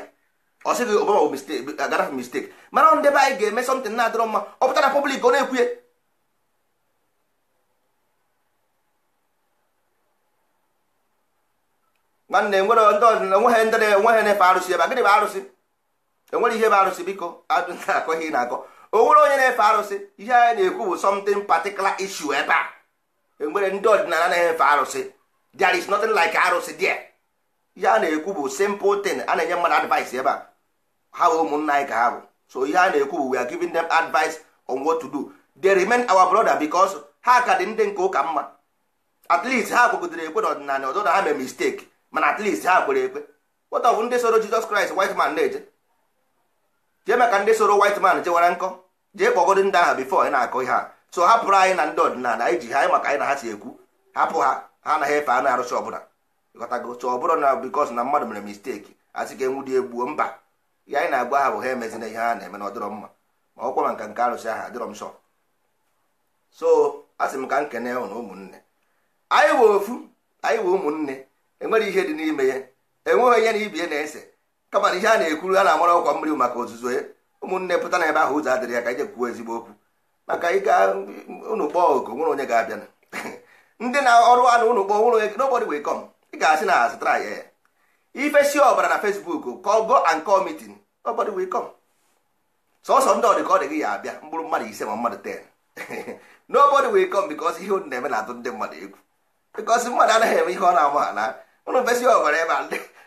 ọ sịghị Obama bụ mistake agara mistake mana ọ ndebe anyị ga-eme something na-adịrọ mma ọ pụtara public ọ na-ekwuye nwanne enwere ndị ọdịnala enweghị ndị na-enweghị na-efe arụsị ebe gịnị bụ arụsị enwere ihe bụ arụsị biko na-akọ ihe na-akọ o nwere onye na-efe arụsị ihe anyị na-ekwu bụ something particular issue ebe a enwere ndị ọdịnala na-efe arụsị there is nothing like arụsị there ihe a na-ekwu bụ simple thing a na-enye mmadụ advice ebe a ha bụ ụmụnna anyị ka ha bụ so ihe a na-ekwu bụ we are giving them advice on what to do they remain our brother because ha ka dị ndị nke ụka mma at least ha kwegodoro ekwe n'ọdịnala ọdụ na ha mee mistake mana at least ha kwere ekwe what of ndị soro Jesus Christ white man na-eje jee maka ndị soro white man jewara nkọ jee kpọgodo ndị aha before anyị na-akọ ihe a so hapụrụ anyị na ndị ọdịnala anyị ji ha anyị maka anyị na ha si ekwu hapụ ha ha anaghị efe anụ arụsị ọbụla ghọtago so ọ bụrụ na bikos na mmadụ mere misteki asị ka dị egbuo mba ya anyị na-agwa ha bụ ha emezina ihe ha na-eme na ọdịrọ mma ma ọkwa ma nka nke arụsị ahụ dịrọ m sọ so asị m ka m kene hụ na ụmụnne anyị wee ofu anyị wee ụmụnne enwere ihe dị n'ime ya enweghị onye na ibie na-ese kama na ihe a na-ekwuru a na-amara ọkwa mmiri maka ozuzo ya ụmụnne pụta na ebe ahụ ụzọ adịrị ya ka ije kwuo ezigbo okwu maka ịga ụnụ kpọọ oku nwere onye ga-abịa ndị na ọrụ anụ kpọọ nwere onye ị ga-asị na azụtara ya eh. ifesi ọbara na fesbuk ka ọ go and call meeting nobody will sọsọ ndị ọdị ka ọ dị gị ya abịa mkpụrụ mmadụ ise ma mmadụ 10 nobody will come because ihe na-eme na-atụ ndị mmadụ egwu because mmadụ anaghị eme ihe ọ na-ama ala ụlọ mfesi ọbara ebe a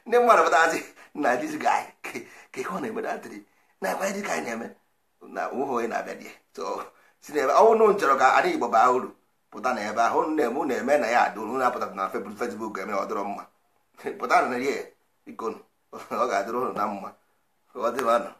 ndị mmadụ pụtazi na dizi anyị ka ihe ọ na-eme na-atịrị na ekwe ka anyị na-eme na onye na-abịa dị so si n'ebe ọnwụ nụ nchọrọ ka anyị igbo baa uru pụta na ebe ahụ na-eme unu eme na ya adịrụ na apụta na fesbuk eme ọ dịrọ mma pụta na ya ikonu ọ ga-adịrụ unu na mma ọ dịrọ anọ